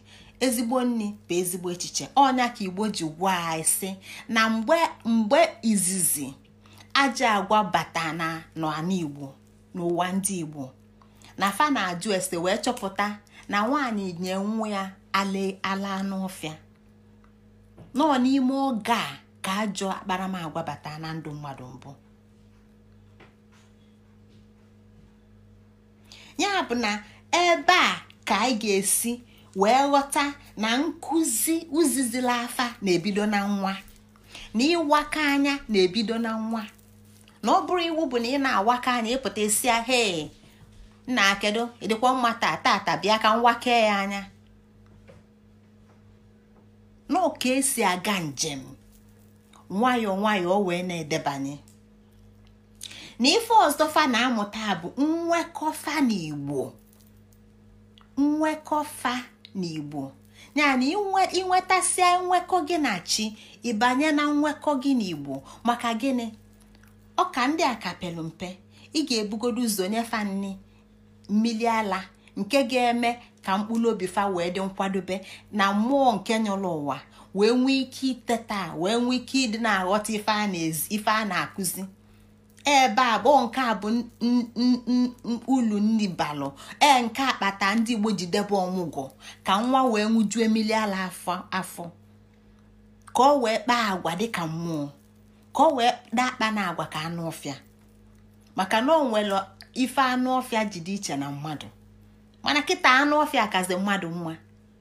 ezigbo nne bụ ezigbo echiche ọnya ka igbo ji gwuo anyị sị na mgbe izizi ajọ agwa bata na n'ala n'ụwa ndị igbo na fa na-ajụ ese wee chọpụta na nwaanyị nye nwa ya ala n'ọfịa nọ n'ime oge a ka ajọ akparamagwa bata na ndụ mmadụ mbụ ya bụ na ebe a ka anyị ga-esi wee ghọta na nkụzi uzizila afa na-ebido na nwa na ịwaka anya na-ebido na nwa na ọ bụrụ iwu bụ na ị na-awaka anya ịpụta esia he na akedo ịdịkwa mmata taa tata bịa ka nwake ya anya na ka esi aga njem nwayọọ nwayọọ o wee na-edebanye na ife ọzọ na-amụta bụ nwekọfa n'igbo nwekọfa igbo yana ịnwetasia nwekọ gị na chi ịbanye na nwekọ gị na igbo maka gịnị ọka ndị a ka pelu mpe ị ga-ebugodo ụzọ nyefa nni mmiri ala nke ga-eme ka mkpụrụ obi fa wee dị nkwadobe na mmụọ nke nyụrụ ụwa wee nwee ike iteta wee nwee ike ịdị na-aghọta ife a na-akụzi ebe a bụ nke a bụ ulu nri balụ ee nke akpata ndị igbo ji debe ọmụgwọ ka nwa wee nwụjue mmiri ala afọ ka ọ wee kpaa agwa dịka mmụọ ka ọ wee dakpa na agwa ka anụ ọfịa maka na o nwere ife anụ ọfịa ji dị iche na mmadụ mana kita anụ ọfịa akazi mmadụ nwa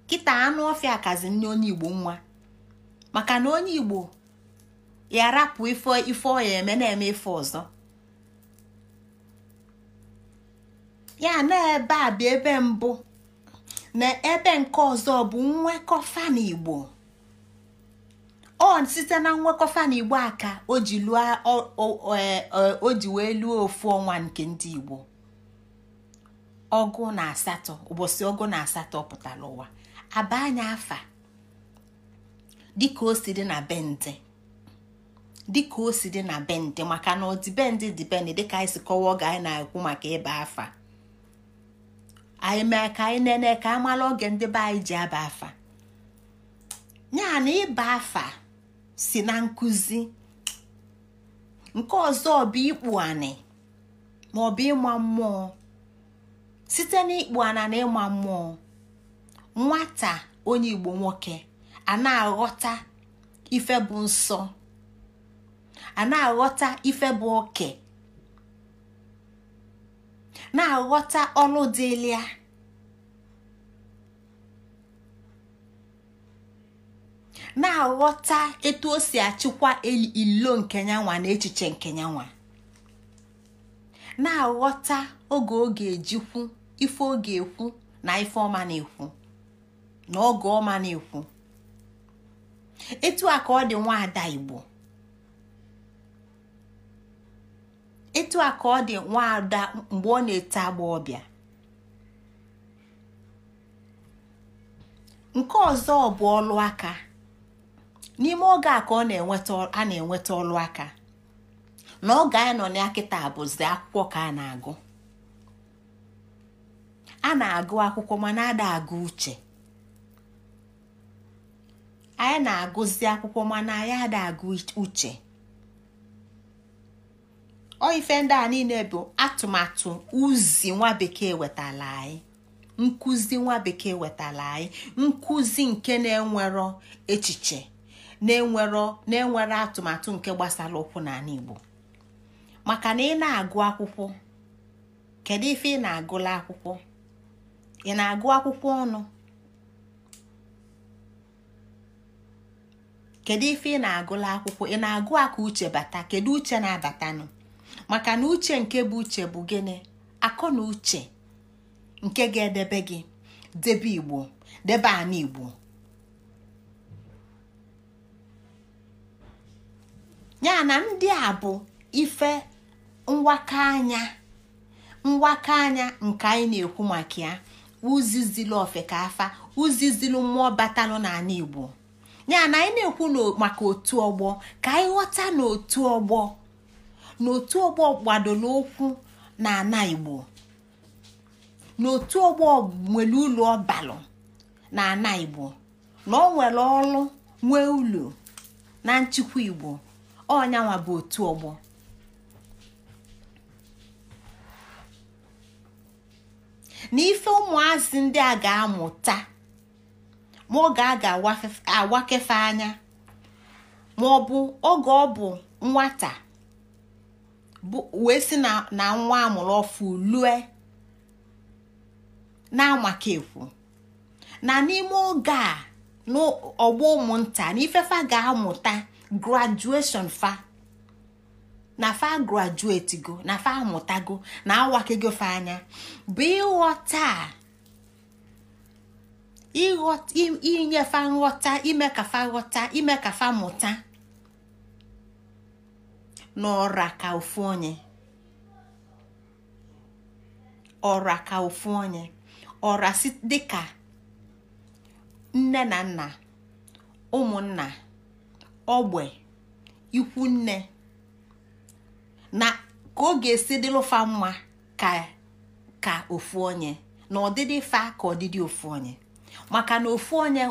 kita anụ ọfịa akazi nne onye igbo nwa maka na onye igbo ya rapụ ife ife eme na-eme ife ọzọ ya na ebe a bụ ebe mbụ na ebe nke ọzọ bụ nwekọ fa igbo ọ site na nwekọfa na igbo aka o ji oji o e, e, wee lụọ ofu ọnwa nke ndị igbo ọgụ na asatọ ụbọchị ọgụ na asatọ pụtara ụwa aba anya afa dịka o si dị na bendị dịka o si dị na bendị maka na ọdịbendị dịbendị dịka anyị si kọwa oge anyị na-ekwu maka ịba afa anyị mee ka anyị nene ka amala oge ndị be anyị ji aba afa ya na ịba afa si na nkụzi nke ọzọ bụ ikpu anị ma ọ bụ ịma mmụọ site ịkpụ ana na ịma mmụọ nwata onye igbo nwoke a na-aghọta ife bụ nsọ a na-aghọta ife bụ oke na-aghọta ọlụ dịlia na-aghọta etu o si achịkwa ilo nke nyanwa na echiche nke nyanwa na-aghọta oge ọ ga-ejikwu ife ọ ga-ekwu na ife ọma na-ekwu na oge ọma na-ekwu etu a ka ọ dị nwaada Igbo etu a ka ọ dị nwaada mgbe ọ na-ete agba ọbịa nke ọzọ ọ bụ ọlụ aka n'ime oge a ka ọ a na-enweta ọlụ aka na oge anyị nọ na akịta bụzi akwụkwọ ka a na-agụ a na-agụ akwụkwọ mana ada agụ uche anyị na-agụzi akwụkwọ mana anyị ada agụ uche ọ ife ndị a niile bụ atụmatụ uzi nwa bekee wetala anyị nkụzi nwa bekee wetala anyị nkụzi nke na-enwero echiche na-enwere atụmatụ nke gbasara ụkwụ n'ala Igbo maka na ị na-agụ akwụkwọ kedu ife ị na-agụla akwụkwọ ị na-agụ akwụkwọ ọnụ kedu ife ị na-agụla akwụkwọ ị na-agụ aka uche bata kedu uche na-abatanụ maka na uche nke bụ uche bụ gịnị akọ na uche nke ga-edebe gị debe igbo debe ana igbo ya na ndị a bụ ife mwaka anya mwaka anya nke anyị na-ekwu maka ya uzizilu ofekafa uzizilu mmụọ batalụ n'ala Igbo ya na anyị na-ekwu maka otu ọgbọ ka anyị ghọta n'otu ọgbọ n'otu ọgbọ gbadola ụkwụ na Igbo n'otu ọgbọ nwere ụlọ ọbalụ na ana Igbo na o nwere ọrụ nwee ụlọ na nchịkwa Igbo ọnyanwa bụ otu ọgbọ na ife ụmụazị ndị a ga-amụta ma oge a ga-awakefe anya ma ọ bụ oge ọ bụ nwata wee si na nwa amụrụ ọfụ lue na-amakekwu na n'ime oge a n'ọgbọ ụmụnta na ifefe ga-amụta graduation fa na fa graduate go na fa amụtago na awakego fa anya bụ ịghọta inye fa nghọta ime ka fa ghọta ime ka fa mụta n'ọra ka ofu onye ọra ka ofu onye ọra dịka nne na nna ụmụnna ogbe ikwunne na ka ọ ga-esi dịlụfa mma ka ka ofu onye na ọdịdị fa ka ọdịdị ofu onye maka na ofu onye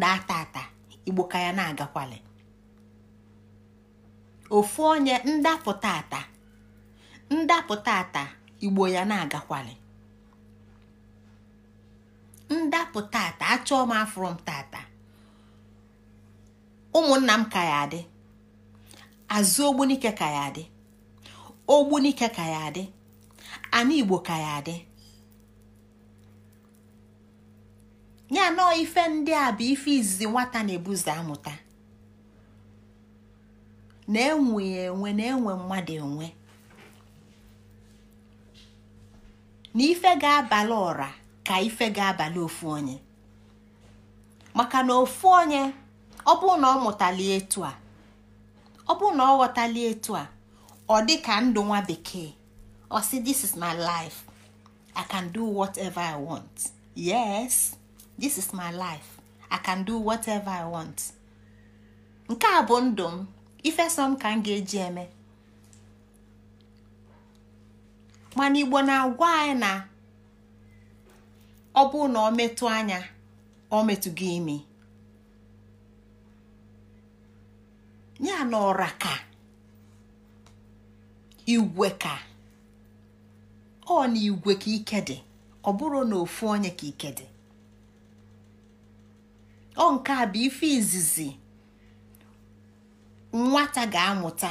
na-ata ata igbo ka ya na-agakwali ofu onye ndapụta ata ndapụta ata igbo ya na-agakwali ndapụta ata achọọ m m tata ụmụnna m ka ya adị azụ ogbunike ka ya adị ogbunike ka ya adị ana igbo ka ya adị ya nọọ ife ndị a bụ ife izizi nwata na-ebuzi amụta na-enwe enwe na-enwe mmadụ enwe na ife ga-abalị ụra ka ife ga-abalị ofu onye maka na ofu onye ọ bụrụ na ọ mụtali etu a ọ bụrụ na ọ ghọtali etu a ọ dị ka ndụ nwa bekee ọ sị this is my life i can do whatever i want yes this is my life i can do whatever i want nke a bụ ndụ m ifesom ka m ga-eji eme mana igbo na-agwa anyị na ọ bụrụ na ọ metụ anya ọ metụ gị imi ya ka igwe ka ọ na igwe ka ike dị ọ bụrụ na ofu onye ka ike dị ọ nke a bụ ife izizi nwata ga-amụta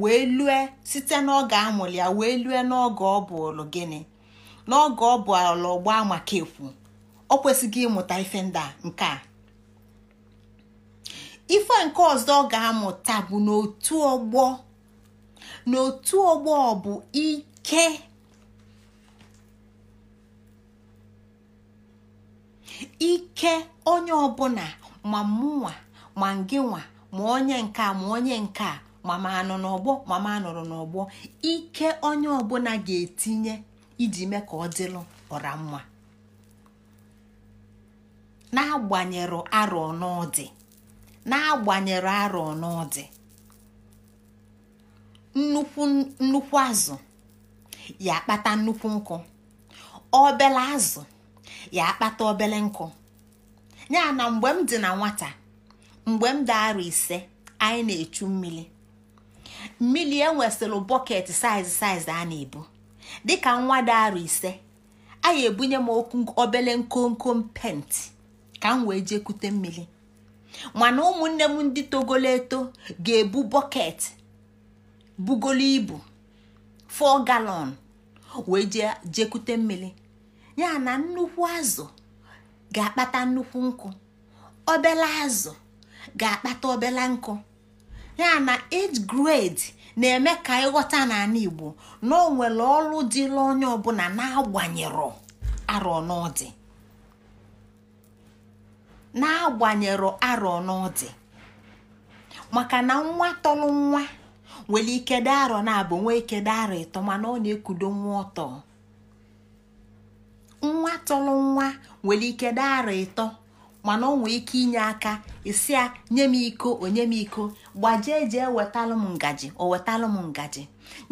wee lue site n'oge amụrụ ya wee lue n'oge ọ bụlụ gịnị n'oge ọ bụlụ gbaa maka ekwu ọ kwesịghị ịmụta ife ndị a nke a ife nke ọzọ ọ ga-amụta bụ n'otu ọgbọ n'otu ọgbọ bụ ike ike onye ọbụla ma mụnwa ma ngịnwa ma onye nke ma onye nke a ma ma anọ n'ọgbọ ma ma anọrọ n'ọgbọ ike onye ọbụla ga-etinye iji mee ka ọ dịlụ ọra mma n'agbanyero arọ n'ọdị na agbanyere arọ n'ọdị nnukwu azụ ya akpata nnukwu nkụ obele azụ ya akpata obele nkụ ya na mgbe m dị na nwata mgbe m dị arọ ise anyị na-echu mmiri mmiri enwesịrị bọket saiz saiz a na-ebu dịka nwa dị arọ ise anyị ebunye m obele komkom penti ka m wee jee kute mmiri mana ụmụnne m ndị togolo eto ga-ebu bọket bugolo ibu fọ galọn wee jee jekute mmiri ya na nnukwu azụ ga-akpata nnukwu nkụ obele azụ ga-akpata obela nkụ ya na age grade na-eme ka ịghọta n'ala Igbo na o nwere ọrụ dịla onye ọbụla na-agbanyerọ arọ n'ọdị n'agbanyero arọ n’ọdị maka na nwa tọrọ nwa nwere ike dị arọ na-abụ nwa ike dị ịtọ mana ọ na-ekudo nwa ọtọ nwa tọrọ nwa nwere ike dị ịtọ mana ọ nwee ike inye aka isi ya nye m iko onye m iko gbajie jee wetalụ m ngaji o m ngaji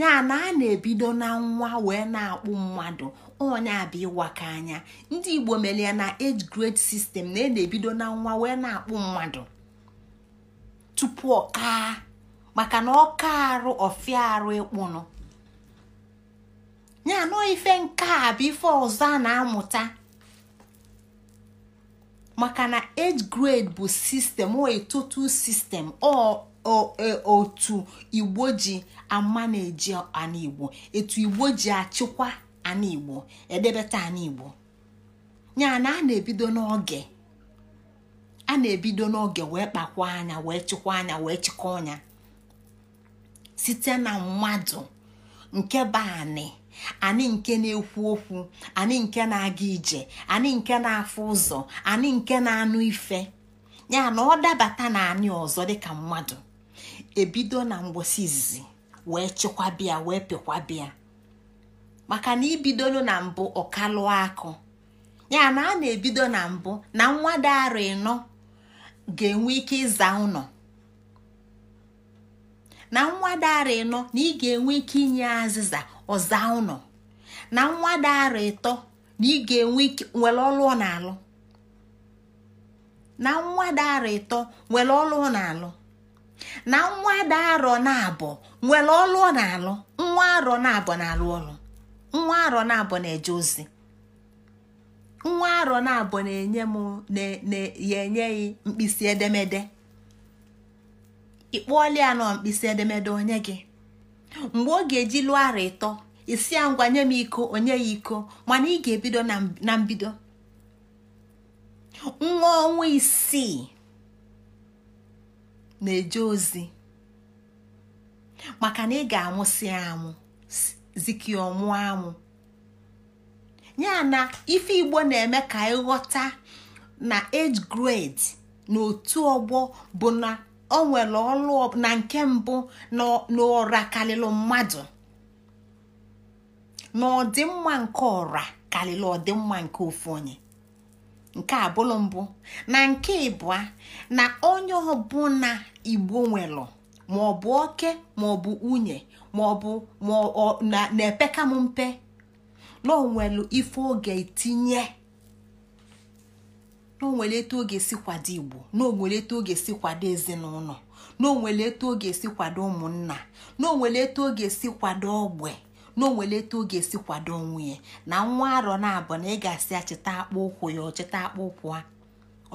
ya na a na-ebido na nwa wee na-akpụ mmadụ onye a bụ ka anya ndị igbo mere ya na age grade sistem na ị e na-ebido na nwa wee na-akpụ mmadụ tupu ọka maka na ọka arụ ọfịa arụ ịkpụnụ ya nọ ife nke a bụ ife ọzọ a na-amụta maka na age grade bụ sistem o etotu sistem e, otu igbo ji ama na-eji anigbo etu igbo ji achịkwa ana igbo edebeta ana ya na a na-ebido n'oge a na-ebido n'oge wee kpakwa anya wee chịkwa anya wee chịkọ ọnya site na mmadụ nke bụ anị anị nke na-ekwu okwu anị nke na-aga ije anị nke na-afụ ụzọ anị nke na-anụ ife ya na ọ dabata na ani ọzọ dịka mmadụ ebido na mgbosi izizi wee bịa wee bịa. maka na ibidolu na mbụ ọkalụ akụ ya na a na-ebido na mbụ na nwada arọ ịnọ ga-enwe ike ịza ụnọ na nwada arọ ịnọ na ị ga-enwe ike inye azịza ọza ụnọ na nwada arọ ịtọ na ị ga-enwe ike nwere ọlụ ọ na-alụ na nwada arọ ịtọ nwere ọlụ ọ na-alụ na nwa nwada arọ na-abụ nwere ọlụ ọ na-alụ nwa arọ na-abụ na-alụ ọlụ nwa arọ na-abụ na-eje ozi nwa arọ na-abụ na-enye m ya mkpịsị edemede ịkpọọla ya nọ mkpịsị edemede onye gị mgbe ọ ga-eji lụọ arọ ịtọ isi ya ngwa nye m iko onye ya iko mana ị ga-ebido na mbido nwa ọnwa isii na-eje ozi maka na ị ga-amụsị ya amụ zikia ọnwụ anwụ ya na ife igbo na-eme ka ịghọta na age grade na otu ọgbọ bụ na ọ nwere ọlụ na nke mbụ na ọra karịrị mmadụ na ọdịmma nke ọra karịrị ọdịmma nke ofu onye nke abụlụ mbụ na nke ịbụa na onye ọbụla igbo nwere maọbụ oke maọbụ nwunye ma ọ bụ na-epeka m mpe na onwelu ife oge tinye na etu oge si kwado igbo na etu oge si kwado ezinụlọ na etu oge si kwado ụmụnna na etu oge si kwado ogbe na etu oge si kwado nwunye na nwa arọ na-abụ na ị ga-asị ya akpa ụkwụ ya ọ cheta akpa ụkwụ a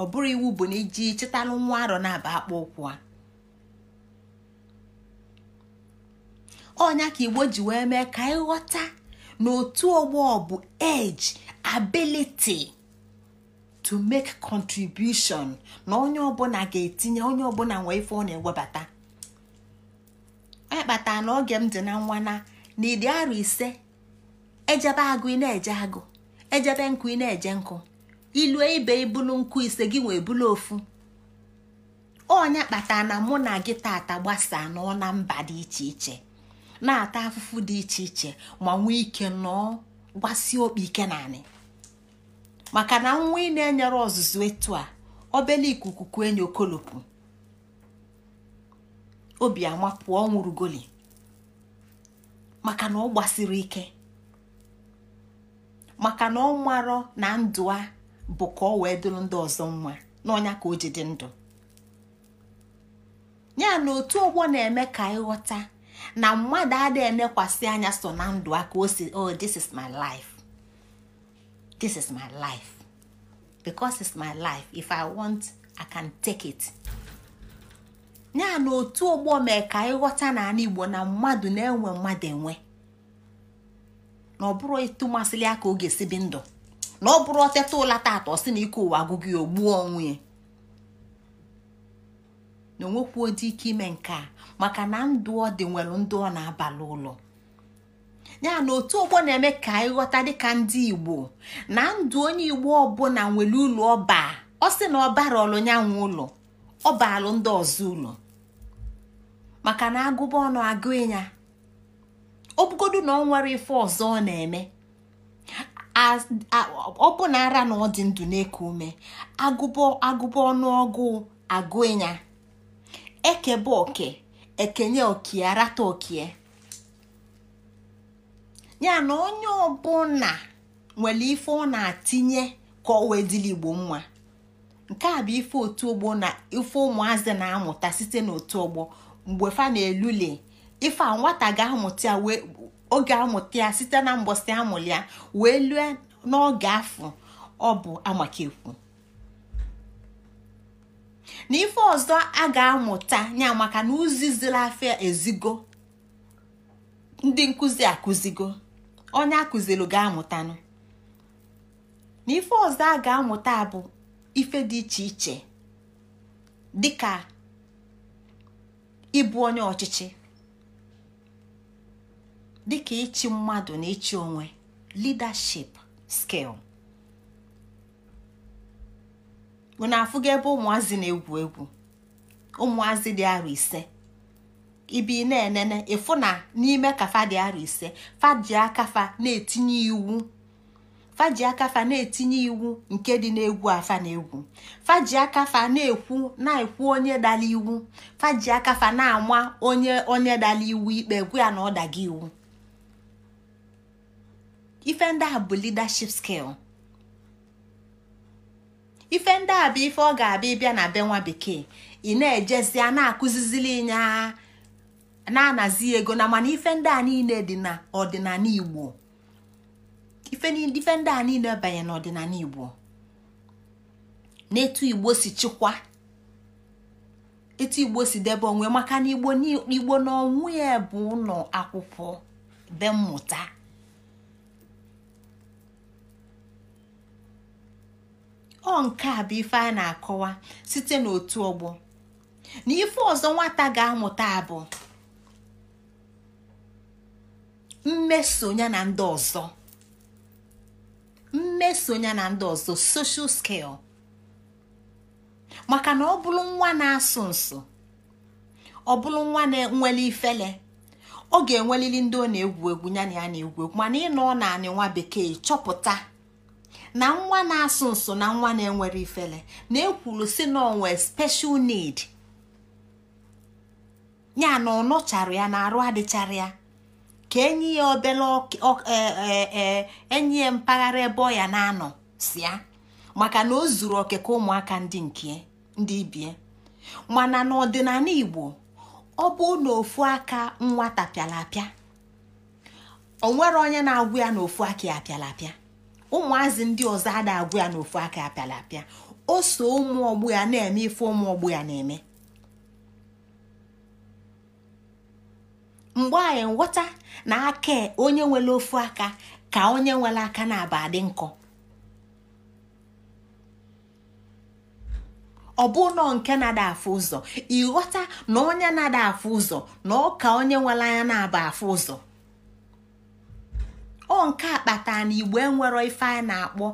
ọ bụrụ iwu bụ na iji chịtalụ nwa arọ na-aba akpa ụkwụ a ọnya ka igbo ji wee mee ka anyị ghọta na otu ọgbọ bụ age ability to make contribution na onye ọbụla ga-etinye onye ọbụla nwee ife ọ na-ewebata onye kpatara na oge m dị na nwa na n'ịdị arọ ise ejebe agụ ị na-eje agụ ejebe nkụ ị na-eje nkụ ilue ibe ibulu nkụ ise gị wee bulu ofu onye kpatara na mụ na gị tata gbasaa nọ na mba dị iche iche na-ata afụfụ dị iche iche ma nwee ike nọọ gbasie okpi ike naanị maka na nwa ị na-enyere ọzụzụ etu a obele ikuku kue enyi okolopu obi ama pụọ goli maka na ọ gbasiri ike maka na ọ marọ na ndụ a bụ ka ọ wee dụrụ ndị ọzọ nwa n'ọnya ka o ji dị ndụ ya na otu ọgbọ na-eme ka ịghọta na mmadụ adịghị enekwasị anya so na ndụ aka o si oh this is my life this is my life because it's my life if i want i can take it ya na otu ụgbọ mee ka ịghọta n'ala igbo na mmadụ na-enwe mmadụ enwe na ọ bụrụ ịtụ masịrị ya ka ọ ga-esi bi ndụ na ọ bụrụ ọteta ụla taata ọ sị na ike ụwa agụgụ ogbuo onwe ya na onwekwu dị ike ime nke a maka na ndụ ọ dị nwere ndụ ọ na-abalị ụlọ ya na otu ọgbọ na-eme ka anyị ghọta dịka ndị igbo na ndụ onye igbo ọbụla nwere ụlọ ọba ọ sị na ọ bara ọlụnyanwụ ụlọ ọ baalụ ndị ọzọ ụlọ maka na agụba ọnụ agụ ịnya obugodu na ọ nwere ife ọzọ ọ na-eme ọ bụ na ara na ọ dị ndụ na-eku ume agụba ọnụọgụ agụ ịnya ekebe oke ekenye okie arata okie ya na onye ọbụla nwere ife ọ na-atinye ka o wee dịla igbo mma nke a bụ ife otu ogbo na ife ụmụazị na-amụta site n'otu ọgbọ mgbe fa na-elule ife a nwata ga-amụta ya oge amụta ya site na mbọsị amụlị ya wee lue n'oge afọ ọ bụ amakekwu na ife ọzọ a ga-amụta ya maka na uzizila afịa ezigo ndị nkụzi akụzigo onye akụzilụ ga-amụtanụ na ife ọzọ a ga-amụta bụ ife dị iche iche dịka ịbụ onye ọchịchị dịka ịchị mmadụ na ịchị onwe leadership skill na afụghị ebe ụmụazị na-egwu egwu ụmụazị dị arụ ise ibi na-enene ịfụ n'ime ka fadị arọ ise faji akafa na-etinye iwu faji akafa na-etinye iwu nke dị n'egwu afa na-egwu faji akafa na-ekwu na-ekwu onye dala iwu faji akafa na-ama onye onye dala iwu ikpe gwu ya na ọ daga iwu ife ndị a bụ leadership skill ife ndị a bụ ife ọ ga-abịa ịbịa na be nwa bekee ị na-ejezi a na-akụzizili ịnya na-anazi ego na mana ife ndị a niile dị n'ọdịnala Igbo ife ndị a niile banye n'ọdịnala Igbo n'etu Igbo si chịkwa etu Igbo si debe onwe maka na Igbo n'onwe ya bụ ụlọ akwụkwọ be mmụta ọ nke a bụ ife a na-akọwa site n'otu ọgbọ na ife ọzọ nwata ga-amụta bụ mmeso ya na ndị ọzọ mmeso ya na ndị ọzọ social skill maka na ọ bụrụ nwa na-asụ nsụ ọ bụrụ nwa na-enwele ifele ọ ga-enwelili ndị ọ na-egwu egwu ya na na-egwu egwu mana ị nọ naanị nwa bekee chọpụta na nwa na-asụ nso na nwa na-enwere ifele na ekwuru si na onwe special need ya na ọ ya na arụ adịchara ya ka enyi ya obele e, e, e, enyi ya mpaghara ebe ọ ya na-anọ si ya maka na o zuru oke ka ụmụaka ndị nke ndị ibie mana n'ọdịnala Igbo ọ bụ na aka nwata pịara apịa onye na-agwụ ya n'ofu aka ya pịara apịa ụmụazị ndị ọzọ ada agwụ ya n'ofu aka apịala apịa o so ụmụ ọgbụ ya na-eme ife ụmụ ọgbụ ya na-eme mgbe anyị nghọta na aka onye nwere ofu aka ka onye nwere aka na-aba adị nkọ ọ bụ nọ nke na-ada afụ ụzọ ịghọta na onye na-ada afụ ụzọ na ọ ka onye nwere anya na-aba afụ ụzọ ọ nke a kpatara na igbo enwero ife a na-akpọ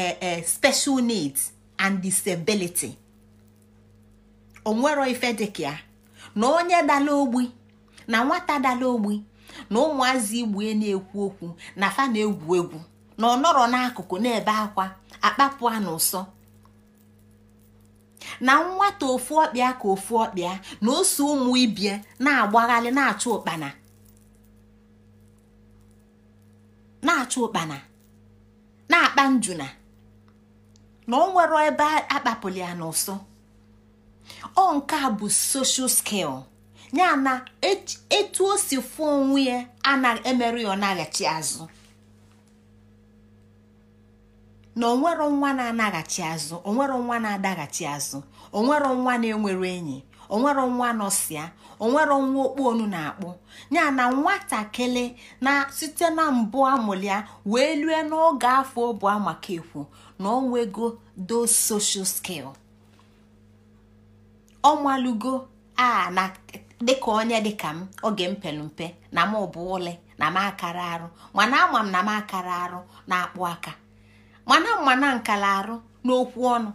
e, e, special needs and disability onwero ife dịka na onye dala ogbi na nwata dala ogbi na ụmụazị igbue na-ekwu okwu na fa na-egwu egwu na ọ nọrọ n'akụkụ na-ebe akwa akpapụ a n'ụsọ na nwata ofu ọkpịa ka ofu ọkpịa na ose ụmụ ibie na-agbagharị na-achụ ụkpana na-achụ ụkpana na-akpa njuna na ọ nwere ebe akpapụli ya n'ụsọ ọ nke a bụ soshal skil ya na etu o si fụọ onwe ya anaghị emerụ ya ọ naghachi azụ na onwero nwa na-anaghachi azụ onwero nwa na-adaghachi azụ onwero nwa na-enwere enyi onwero nwa nọsịa onwere nwa okpu onu na-akpụ ya na nwatakịrị na site na mbụ amụlia wee lue n'oge afọ ụbụ maka ekwu na onwego do social skill ọmalugo a na dịka onye dịka m oge mpelumpe mpe na m bụ ụlị na m akara arụ mana ama m na m akara arụ na akpụ aka mana mana nkara arụ n'okwu ọnụ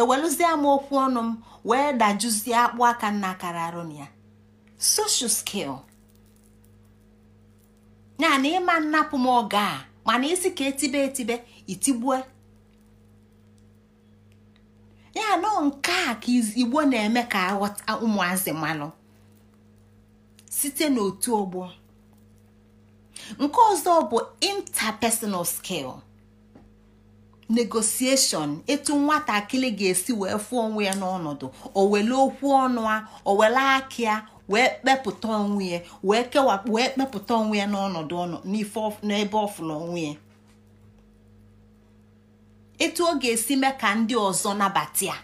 ewelụzie m okwu ọnụ m wee dajuzie akpụ aka nna akara arụ na ya social skil ya na ịma nnapụ m oge a mana isi ka etibe etibe itigbue ya nọ nke a ka igbo na-eme ka aghọta ụmụazị mmanụ site n'otu ọgbọ nke ọzọ bụ interpersonal skill. negosieshọn etu nwatakịrị ga-esi wee fụọ onwe ya n'ọnọdụ o wele okwu ọnụ a o wele akị wee kpepụta onwe ya wee kewapụ wee kpepụta onwe ya n'ọnọdụ ọnụ n'ebe ọfụla onwe ya etu ọ ga-esi mee ka ndị ọzọ nabata ya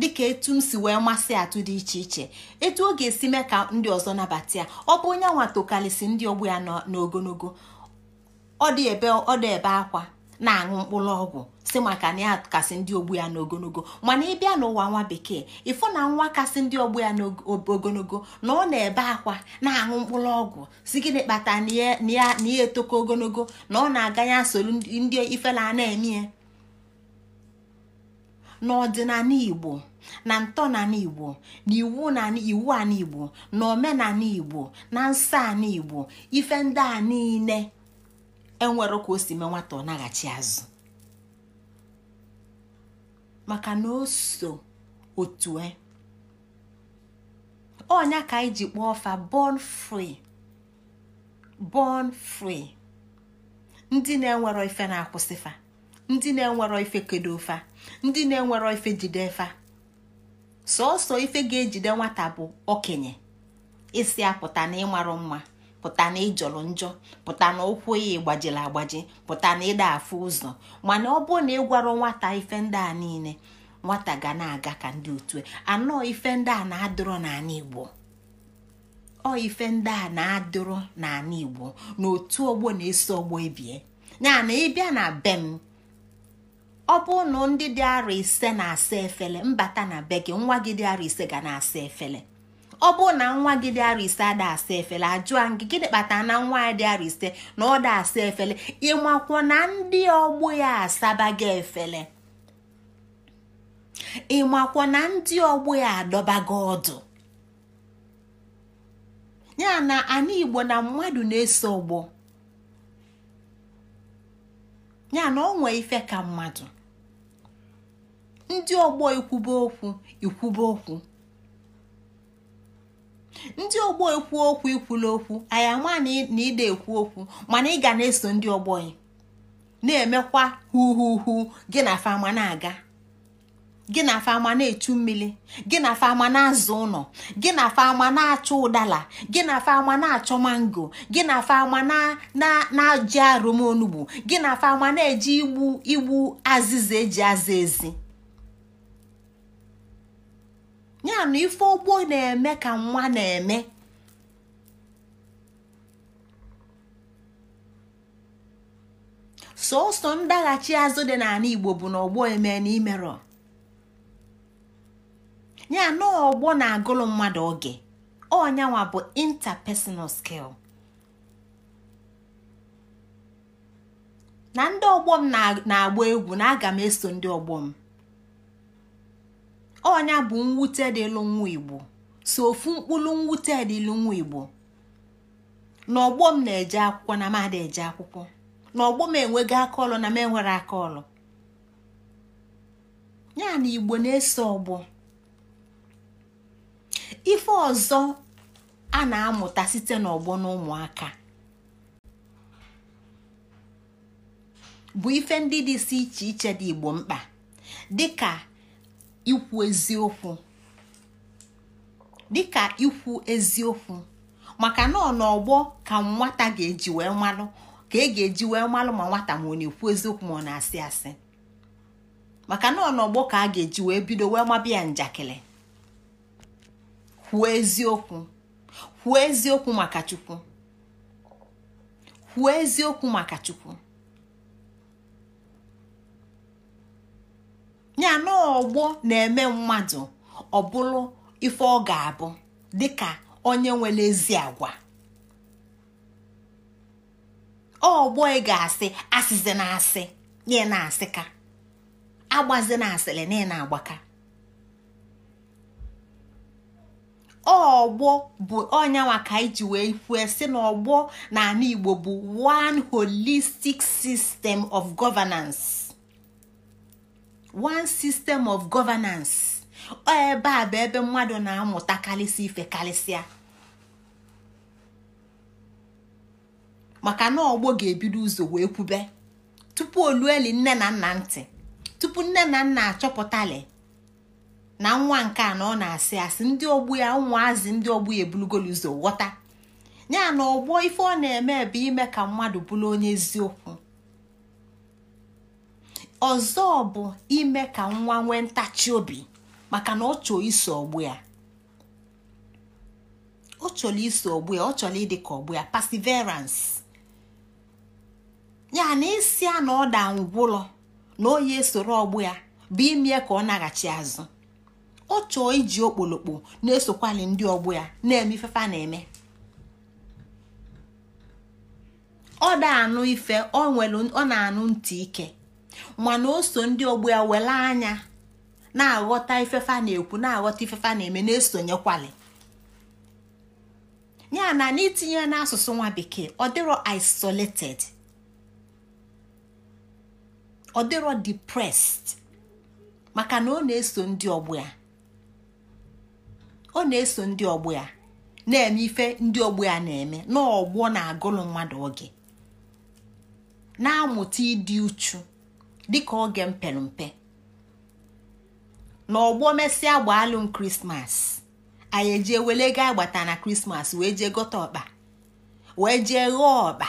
dịka etu m si wee masị atụ dị iche iche etu ọ ga-esi mee ka ndị ọzọ nabata ya ọ bụ onye nwa tokalịsị ndị ọgbọ ya n'ogologo ọ dị ebe ọ dị ebe akwa na-aṅụ mkpụrụ ọgwụ si maka na ya kasị ndị ogbu ya n'ogologo mana ị bịa n'ụwa nwa bekee ịfụ na nwa kasị ndị ogbu ya n'ogologo na ọ na-ebe akwa na-aṅụ mkpụrụ ọgwụ si gịnị kpata na ya etoko ogologo na ọ na-aga ya soro ndị ifela na-eme n'ọdịnala igbo na ntọnala igbo na iwu iwu ala igbo na omenala igbo na nsọ ala igbo ife ndị a niile enwero ka o si nwata ọ naghachi azụ maka na o so otu e. ọnya ka anyị ji kpọọ fa born free born free ndị na-enwero ife na-akwụsị fa ndị na-enwero ife kedo fa ndị na-enwero ife jide fa sọọsọ ife ga-ejide nwata bụ okenye isi apụta na ịmarụ mma pụta na ịjọrọ njọ pụta na ụkwụ ya gbajiri agbaji pụta na ịda afụ ụzọ mana ọ bụrụ na gwara nwata ife ndị a niile nwata ga na-aga ka ndị otu e. anọ ife ndị a na-adụrọ n'ala Igbo ọ ife ndị a na-adụrọ n'ala Igbo na otu ọgbọ na-eso ọgbọ ebie ya ịbịa na be m ọ bụrụ na ndị dị arọ ise na-asa efele mbata na be gị nwa gị dị arọ ise ga na-asa efele ọ bụrụ na nwa gị dị arọ ise ada asa efele ajụa gị gịnị kpatara na nwa ya dị arọ ise na ọ da asa efele ịmakwọ na ndị ọgbọ ya asaba gị efele ịmakwọ na ndị ọgbọ ya adọba gị ọdụ ya na ana igbo na mmadụ na-eso ọgbọ ya na ọ nwee ife ka mmadụ ndị ọgbọ ikwube okwu ikwube okwu ndị ọgbọ ekwu okwu ikwula okwu anyị ama na ịda ekwu okwu mana ị ga na-eso ndị ọgbọ na-emekwa huhuhu gị na fama na-aga gị na fama na-echu mmiri gị na fama na-azụ ụlọ gị na fama na-achọ ụdala gị na fama na-achọ mango gị na fama na-ajị arụm gị na fama na-eji igbu igbu azịza eji aza ezi ya na ife ogbo na-eme ka nwa na-eme sọsọ ndaghachi azụ dị n'ala igbo bụ na ọgbọ eme na imerọ ya na ọgbọ na-agụlụ mmadụ oge ọnyanwa bụ interpersonal skill na ndị ọgbọ m na-agba egwu na aga m eso ndị ọgbọ m ọnya bụ mwute dịlụ nwa igbo so ofu mkpụrụ mwute dịlụ nwa igbo n'ọgbọ m na-eje akwụkwọ na mada eje akwụkwọ n'ọgbọ m enwego aka ọlụ na m enwere aka ọlụ ya na igbo na ese ọgbọ ife ọzọ a na-amụta site n'ọgbọ na ụmụaka bụ ife ndị dị si iche iche dị igbo mkpa dịka ikwu eziokwu dịka ikwu eziokwu maka na n'ọgbọ ka nwata ga-eji wee malụ ka e ga-eji wee malụ ma nwata ma ọ na-ekwu eziokwu ma ọ na-asị asị maka na n'ọgbọ ka a ga-eji wee bido wee mabịa njakịrị kwuo eziokwu kwuo eziokwu maka Chukwu kwuo eziokwu maka Chukwu ya na ọgbọ na-eme mmadụ ọ bụrụ ife ọ ga-abụ dịka onye nwere ezi agwa ọgbọ ị ga-asị asịzi na asị nye na-asị ka agbazi na asịrị na ị na-agbaka ọgbọ bụ onye ka iji wee kwue si na ọgbọ na ala Igbo bụ one holistic system of governance. one system of governance ọ ebe a bụ ebe mmadụ na-amụta karịsị ife karịsịa maka na ọgbọ ga-ebido ụzọ wee kwube tupu olueli nne na nna ntị tupu nne na nna achọpụtali na nwa nke a na ọ na-asị asị ndị ogbu ya ụmụazị ndị ogbu ya ebulugolu ụzọ ghọta ya na ọgbọ ife ọ na-eme bụ ime ka mmadụ bụrụ onye eziokwu ọzọ bụ ime ka nwa nwee ntachi obi maka na ọ chọọ iso ọgbụ ya ọ chọrọ iso ọgbụ ya ọ chọrọ ịdị ka ọgbụ ya perseverance ya na isi a na ọda ngwụlọ na onye esoro ọgbụ ya bụ ime ka ọ naghachi azụ ọ chọọ iji okpolokpo na-esokwali ndị ọgbụ ya na-eme ifefa na-eme ọ anụ ife ọ na-anụ ntị ike mana o ndị ọgbọ ya wele anya na-aghọta ifefa na-ekwu na-aghọta ifefa na-eme na-esonyekwali ya na n'itinye n'asụsụ nwa bekee ọ dịrọ isolated ọ dịrọ depressed maka na ọ na-eso ndị ọgbọ ya ọ na-eso ndị ọgbọ ya na-eme ife ndị ọgbọ ya na-eme n'ọgbọ na-agụlụ mmadụ oge na-amụta ịdị uchu dịka oge mpempe na ọgbọ mesịa gbaalụm krismas anyị ejee wele ga agbata na krismas wee jee gote ọkpa wee jee ghọọ ọkpa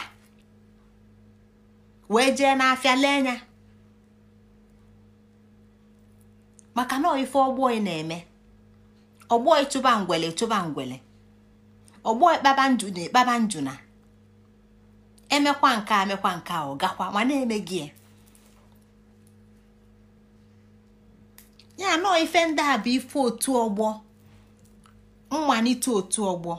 wee jee n'afịa lee anya maka na ife ọgbọ ị na-eme ọgbọ ịchụba ngwele chụba ngwele ọgbọ ịkpaba ndụ na ịkpaba e na emekwa nke a mekwa nke a ọ gakwa ma na-eme gị ya e. ya nọọ ife ndị a bụ ife otu ọgbọ mmalite otu ọgbọ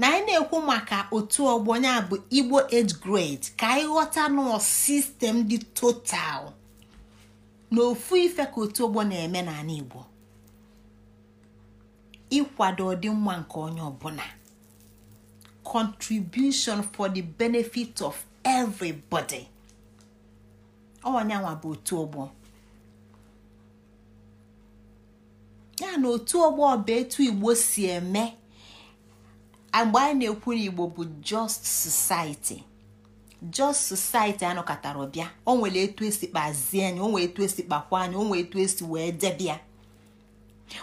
na anyị na-ekwu maka otu ọgbọ ya bụ igbo age grade ka anyị ghọta nọọ sistem dị total na ofu ife ka otu ọgbọ na-eme n'ala igbo ịkwado ọdịmma nke onye ọbụla contribution for the benefit of everybody ọnyanwa bụ otu ọgbọ ya na otu ọgbọ ọba etu igbo si eme mgbe anyị na-ekwu na igbo bụ just society just society anọkọtara ọbịa o nwere etu esi kpazie anyị o nwere etu esi kpakwa anyị o nwere etu esi wee debịa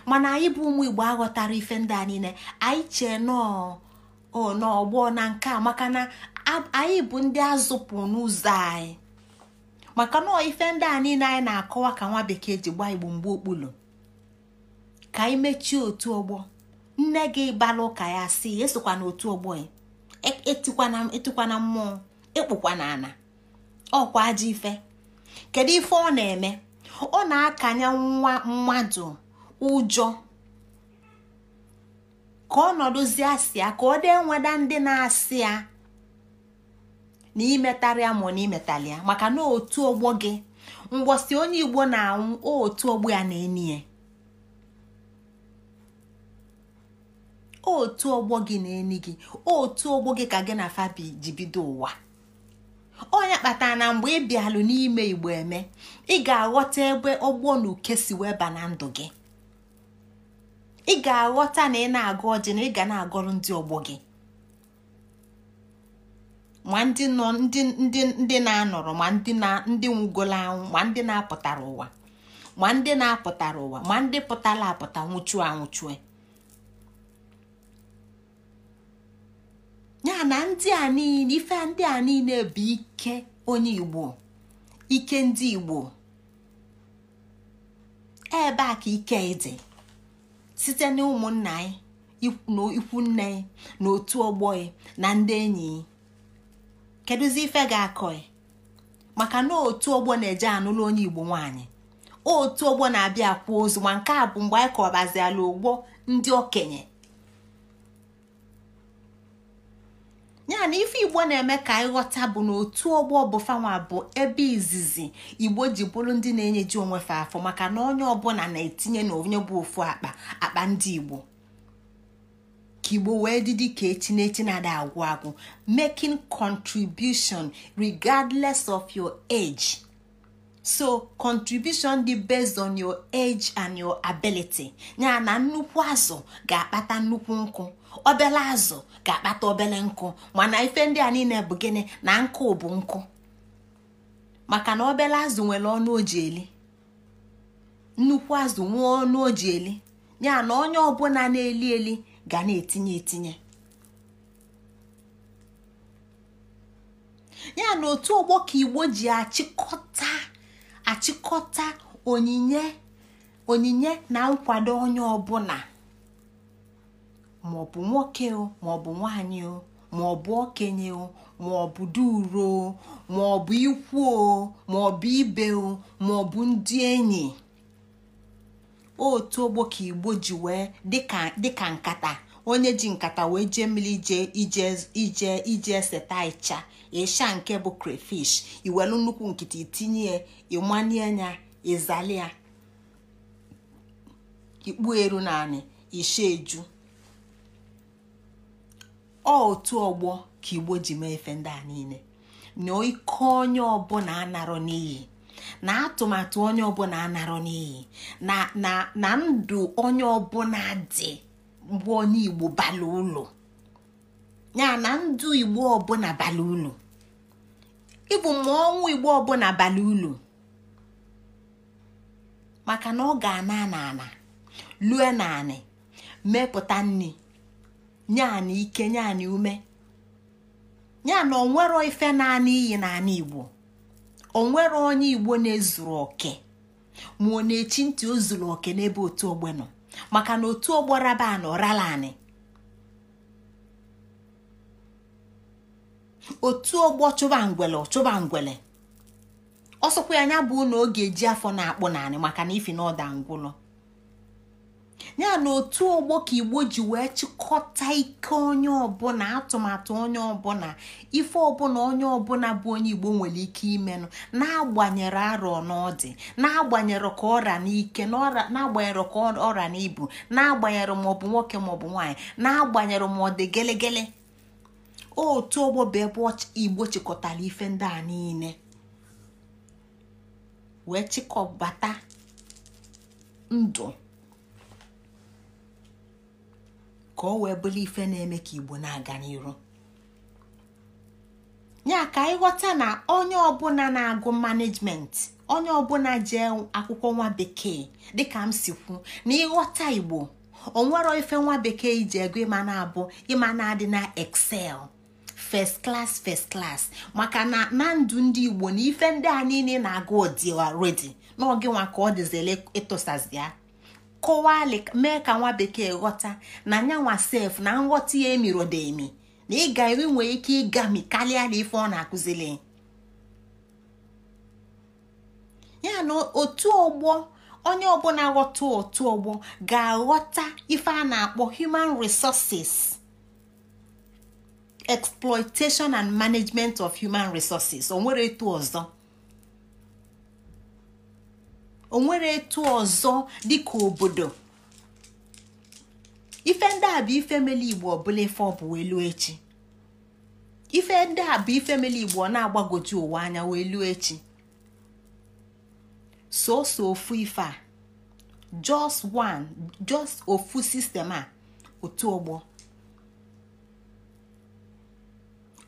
mana anyị bụ ụmụ igbo aghọtara ife ndị a niile anyị chee nọọ n'ọgbọ na nke a maka na anyị bụ ndị azụpụ n'ụzọ anyị maka nọọ ife ndị a niile anyị na-akọwa ka nwa bekee ji gbaa igbo mgbe okpulu ka anyị mechie otu ọgbọ nne gị bala ụka ya si esokwa na otu ọgbọ ya e, e e na mmụọ na ana ọkwa ajọ ife kedu ife ọ na-eme ọ na-akanye nwa mmadụ ụjọ ka ọ nọdụzie asịa ka ọ dị nweda ndị na-asị ya na imetarịa ma na imetalịa maka na otu ọgbọ gị mgbọsi onye igbo na-anwụ otu ọgbọ ya na-enye otu ọgbọ gị na enyi gị otu ọgbọ gị ka gị na fabi ji bido ụwa onye kpatara na mgbe ị bịalụ n'ime igbo eme ị ga-aghọta ebe ọgbọ na uke si weba na ndụ gị ị ga-aghọta na ị na-agụ ọjị na ị ga na-agọrọ ndị ọgbọ gị ma ndị nọ ndị na-anọrọ ma ndị nwụgola anwụ ma ndị na-apụtara ụwa ma ndị na-apụtara ụwa ma ndị pụtara apụta nwụchuo anwụchue ya na ndị a niile ife ndị a niile bụ ike onye igbo ike ndị igbo ebe a ka ike dị site na ụmụnna anyị na ikwu nne anyị na otu ọgbọ ya na ndị enyi kedụzi ife ga-akọ maka na otu ọgbọ na-eje anụlụ onye igbo nwanyị otu ọgbọ na-abịa kwuo ozu ma nke a bụ mgbe anyị kọbaziala ụgbọ ndị okenye ya na ife igbo na-eme ka anyị ghọta bụ na otu ọgbọ bụ bụ ebe izizi igbo ji bụrụ ndị na-enyeji onwe fa afọ maka na onye ọbụla na-etinye na onye bụ ofu akpa akpa ndị igbo ka igbo wee dị ka echi na echi na agwụ agwụ making contribution regardless of your age so contribution dị based on your age and your ability ya na nnukwu azụ ga-akpata nnukwu nkụ obele azụ ga-akpata obele nkụ mana ife ndị a niile bụ gịnị na nkụ bụ nkụ maka na obele azụ nwere ọnụ oji eli nnukwu azụ nwee ọnụ oji eli ya na onye ọbụla na-eli eli ga na-etinye etinye ya na otu ọgbọ ka igbo ji achịkọta achịkọta onyinye na nkwado onye ọbụla maọbụ nwoke o maọbụ nwanyị o maọbụ okenye o maọbụ duro o maọbụ ikwu o maọbụ ibe o maọbụ ndị enyi otu ogbo ka igbo ji wee dịka nkata onye ji nkata wee jee mmiri ije ije ije seta ịcha ịsha nke bụ crayfish iwelu nnukwu nkịtị itinye ịmanye ya ịzali ya ikpu eru naanị isha eju otu ọgbọ ka igbo ji mee efe ndị a niile na ike onye ọbụla anarọ n'iyi na atụmatụ onye ọbụla anarọ n'iyi na ndụ onye ọbụla dị mgbe onye igbo bala ụlọ ya na ndụ igbo ọbụla bala ụlọ ịbụ ma ọnwụ igbo ọbụla bala ụlọ maka na ọ ga-ana ana ana lue mepụta nri nyaanị ike nyaanị ume ya na onwero ife naanị iyi naanị igbo onwere onye igbo na-ezuru oke ma ọ na-echi ntị o zuru oke n'ebe otu ogbe nọ maka na otu ogbo raba na otu ogbo chụba ngwele ọ ngwele ọsọkwa ya anya bụ na ọ ga-eji afọ na-akpụ naanị maka na ifi na ọda ngwụlọ ya na otu ọgbọ ka igbo ji wee chịkọta ike onye ọbụla atụmatụ onye ọbụla ife ọbụla onye ọbụla bụ onye igbo nwere ike imenụ na-agbanyere arọ n'ọdị na-agbanyere ka ọra n'ike na-agbanyere ka ọra n'ibu na-agbanyere ma ọ bụ nwoke ma ọ bụ nwaanyị na-agbanyere ma ọ dị gelegele otu ọgbọ bụ ebe igbo chịkọtara ife ndị a niile wee chịkọbata ndụ ka ọ wee bụrụ ife na-eme ka igbo na-aga n'iru ya ka ịghọta na onye ọbụla na-agụ management onye ọbụla jee akwụkwọ nwa bekee dịka m si kwu na ịghọta igbo o nwere ife nwa bekee iji ego ịma na-abụ ịma na-adị na excel first class first class maka na na ndụ ndị igbo na ife ndị a niile na-agụ ọdịwa already n'oge ka ọ dịzile ịtụsazi ya kọwali mee ka nwa bekee ghọta na nyanwa sef na nghọta ya emirodemi na ịga eri nwee ike ịgami karịa na ife ọ na-akụzili ya na otu ọgbọ onye ọbụla ghọta otu ọgbọ ga-aghọta ife a na-akpọ human resources exploitation and management of human resources o nwere etu ọzọ o nwere etu ọzọ dịka obodo ife ndị a bụ ife mele igbo ọbụla ife ọ bụ elu echi ife ndị a bụ ife mele igbo ọ na-agbagoju ụwa anya wee luo echi soso ofu ife a just one just ofu sistem a otu ọgbọ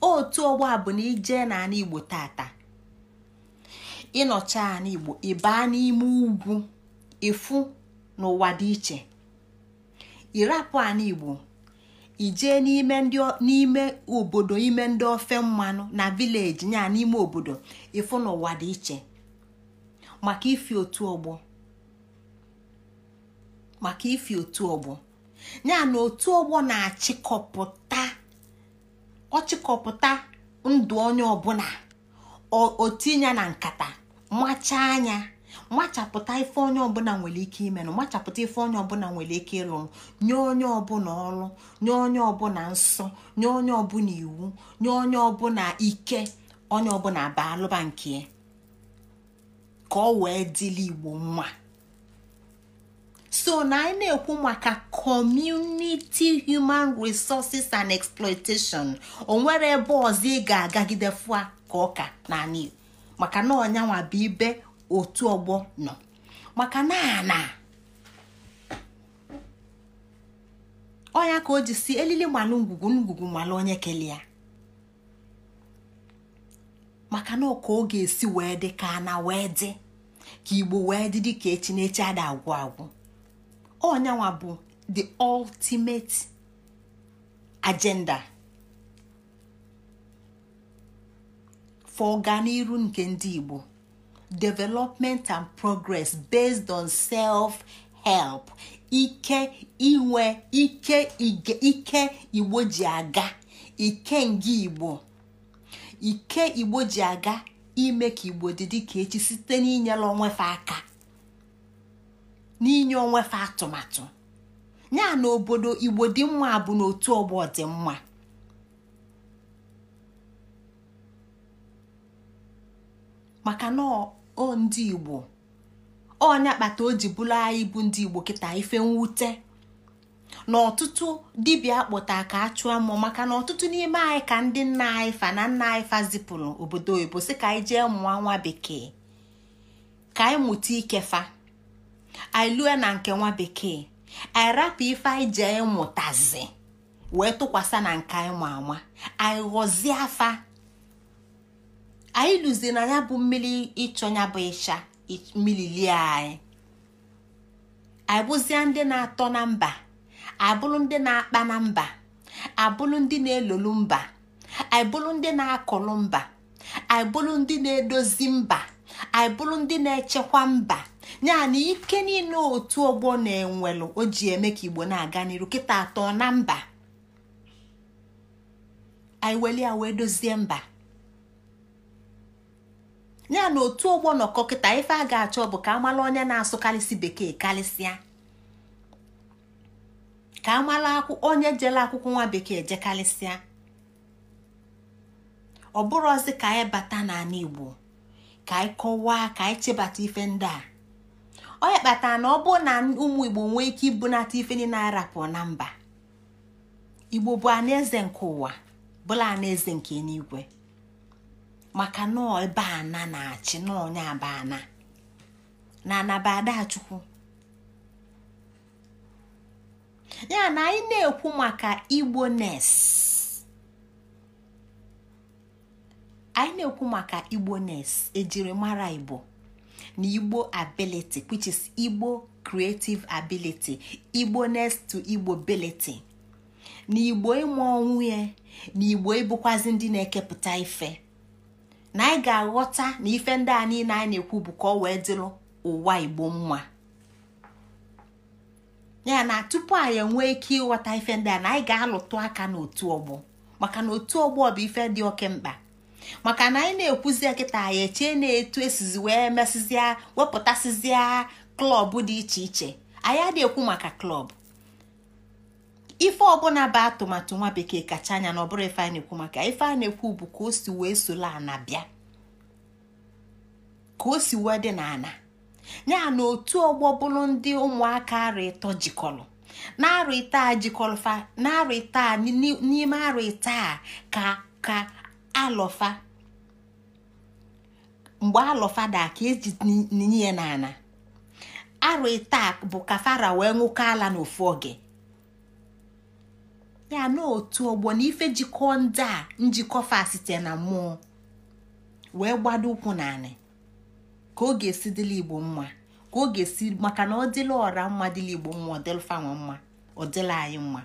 otu ọgbọ a bụ na ije na ana igbo tata ịnọcha ala igbo ịbaa n'ime ugwu ịfụ n'ụwa dị iche ịrapụ igbo ijee n'ime n'ime obodo ime ndị ofe mmanụ na vileji nya n'ime obodo ịfụ n'ụwa dị iche maka ifi otu ọgbọ maka otu ọgbọ ya na otu ọgbọ na-achịkọpụta ọchịkọpụta ndụ onye ọbụla otinya na nkata macha anya machapụta ife onye ọbụla nwere ike ime na machapụta ife onye ọbụla nwere ike ịlụrụ nye onye ọbụla ọrụ nye onye ọbụla nsọ nye onye ọbụla iwu nye onye ọbụla ike onye ọbụla lụba nke ka ọ wee dịla igbo mma so na anyị na-ekwu maka community human resources and exploitation o nwere ebe ọzọ ị ga-agagide fụa ka ọka na igbo maka na ọnyanwa bụ ibe otu ọgbọ nọ maka na ana ọnya ka o ji si elili malụ ngwugwu ngwugwu onye kele ya maka na oge ọ ga-esi wee dị ka ana wee dị ka igbo wee dị dị ka echi n'echi ada agwụ agwụ ọnyanwa bụ the ultimate agenda. for ọganiru nke ndị Igbo development and progress based on self-help ike inwe ike Igbo ji aga ike nga Igbo ike Igbo ji aga ime ka Igbo dị ka echi site n'inyere onwefe aka n'inye onwefe atụmatụ ya na obodo Igbo dị mma bụ n'otu ọgbọ dị mma maka na o ndị igbo ọnya kpata o ji bụrụ anyị bụ ndị igbo kịta ife mwute na ọtụtụ dibịa akpọta ka a chụọ mmụọ maka na ọtụtụ n'ime anyị ka ndị nna anyị fa na nna anyị fa zipụrụ obodo oyibo si ka anyị jee mụọ nwa bekee ka anyị mụta ikefa anyị lue na nke nwa bekee anyị rapụ ife anyị jee mụtazi wee tụkwasị na nke anyị ma ama anyị ghọzie afa anyị lụzie na ya bụ mmiri ịchọnya bụ ịcha mmiri lie anyị abụzie ndị na-atọ na mba abụrụ ndị na-akpa na mba abụrụ ndị na-elolu mba aịbụrụ ndị na-akụrụ mba aịbụrụ ndị na-edozi mba aịbụrụ ndị na-echekwa mba yana ike niile otu ọgbọ na-enwelụ o ji eme ka igbo na-aga n'iru kịta atọ na mba anyị weli wee dozie mba ya na otu ụgbọ nọkọ kịta ife a ga-achọ bụ ka amala onye na-asụkarịsị bekee karịsịa ka amala onye jele akwụkwọ nwa bekee jekarịsịa ọ bụrụzi ka anyị bata n'ala Igbo ka anyị kọwaa ka anyị chebata ife ndị a onye kpatara na ọ bụ na ụmụ Igbo nwee ike ibunata ife niile pụọ na mba Igbo bụ alaeze nke ụwa bụla alaeze nke eluigwe maka nọọ ebe ana na-achị nọọ onye abana na anabadachukwu ya na anyị na-ekwu maka igbo nes anyị na-ekwu maka igbo nes ejirimara igbo na igbo ability which is igbo creative ability igbo nes to igbo ability na igbo ịmụ onwe ya na igbo ịbụkwazị ndị na-ekepụta ife na anyị ga-aghọta na ife ndị a niile anyị na-ekwu bụ ka ọ wee dịrị ụwa igbo mma ya na tupu anyị enwee ike ịghọta ife ndị a na anyị ga-alụtụ aka n'otu ọgbọ maka na otu ọgbọ bụ ife dị oke mkpa maka na anyị na-ekwuzi kịta anyị echee na-etu esizi wee mesịzịa wepụtasịzịa klọb dị iche iche anyị adịghị ekwu maka klọb ife ọbụla bụ atụmatụ nwa bekee kacha anya na ọbụrụ ife a na-ekwu maka ife a na-ekwu bụ ka o si wee sola ana bịa ka o si wee dị n'ana ya na otu ọgbọ bụrụ ndị ụmụaka arụ ịtọ jikọrọ na-arụ ịta jikọrọfa na-arụ ịta n'ime arụ ịta ka ka alọfa mgbe alọfa da ka eji ninye ya n'ana arụ ịta bụ ka fara wee nwụkọ ala n'ofu oge ya na otu ọgbọ na ife jikọọ ndị a njikọ fa site na mmụọ wee gbado ụkwụ naanị ka ọ ga-esi dịla igbo mma ka ọ ga-esi maka na ọ dịla ọra mma dịla igbo mma ọ dịla mma ọ dịla anyị mma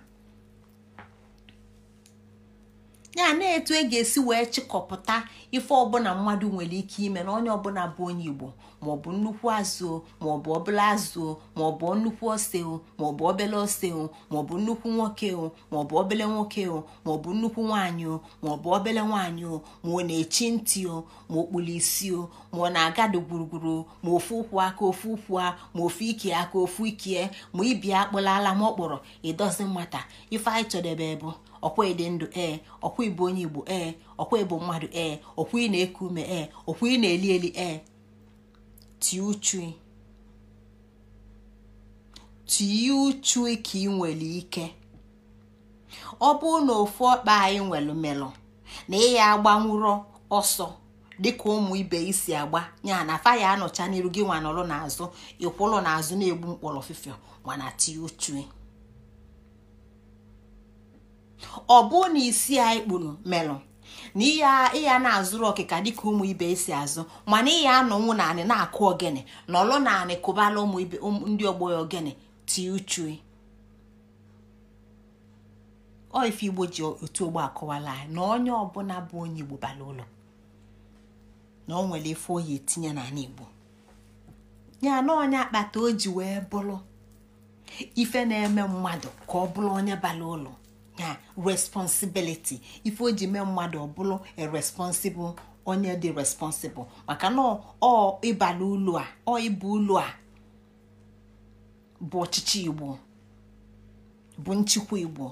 ya na etu e ga-esi wee chịkọpụta ife ọbụla mmadụ nwere ike ime na onye ọbụla bụ onye igbo maọbụ nnukwu azụ maọbụ ọbụla azụ maọbụ nnukwu ose maọbụ obele ose maọbụ nnukwu nwoke maọbụ obele nwoke maọbụ nnukwu nwaanyị maọbụ obele nwaanyị ma ọ na-echi ntị ma ọ kpụrụ isi ma ọ na-agado gburugburu ma ofu ụkwụ aka ofu ụkwụ ma ofu ike aka ofu ikie ma ibia akpụlala ma ọ ịdozi mmata ife anyị chọdebe bụ ọkwa ịdị ndụ ee eh, ọkwa ịbụ onye igbo ee eh, ọkwa ịbụ mmadụ ee eh, ọkwa ị na-eku ume ee ọkwa ị na-eli eli ee tii uchu ka ị nwere ike ọ bụrụ na ofu ọkpa anyị nwere melụ na ịya agbanwuro ọsọ dịka ụmụ ibe isi agba ya na faya anọcha n'iru gị nwa nọrọ n'azụ ịkwụlụ n'azụ na-egbu mkpọrọ ofufe mana tie uchu ọ bụrụ na isi anyị kpuru melụ na ịya na-azụrụ ọkịka dịka ụmụ ibe esi azụ mana ịya anọnwụ n'ani na-akụ ogene nọlụ naanị kụbala ụmụ ibe ndị ọgbọ ya ogene ti uchu oife igbo ji otu ogbo akụwala anyị na onye ọbụla bụ onye igbo bara ụlọ na ọ nwere ife oyi etinye anị igbo ya na onye akpata o ji wee bụrụ ife na-eme mmadụ ka ọ bụrụ onye bara ụlọ na responsibiliti ife o ji mee mmadụ ọbụlụ e responsible onye dị responsible maka na ọ ịbala ụlọ a ọ ịba ụlọ a bụ ọchịchị igbo bụ nchịkwa igbo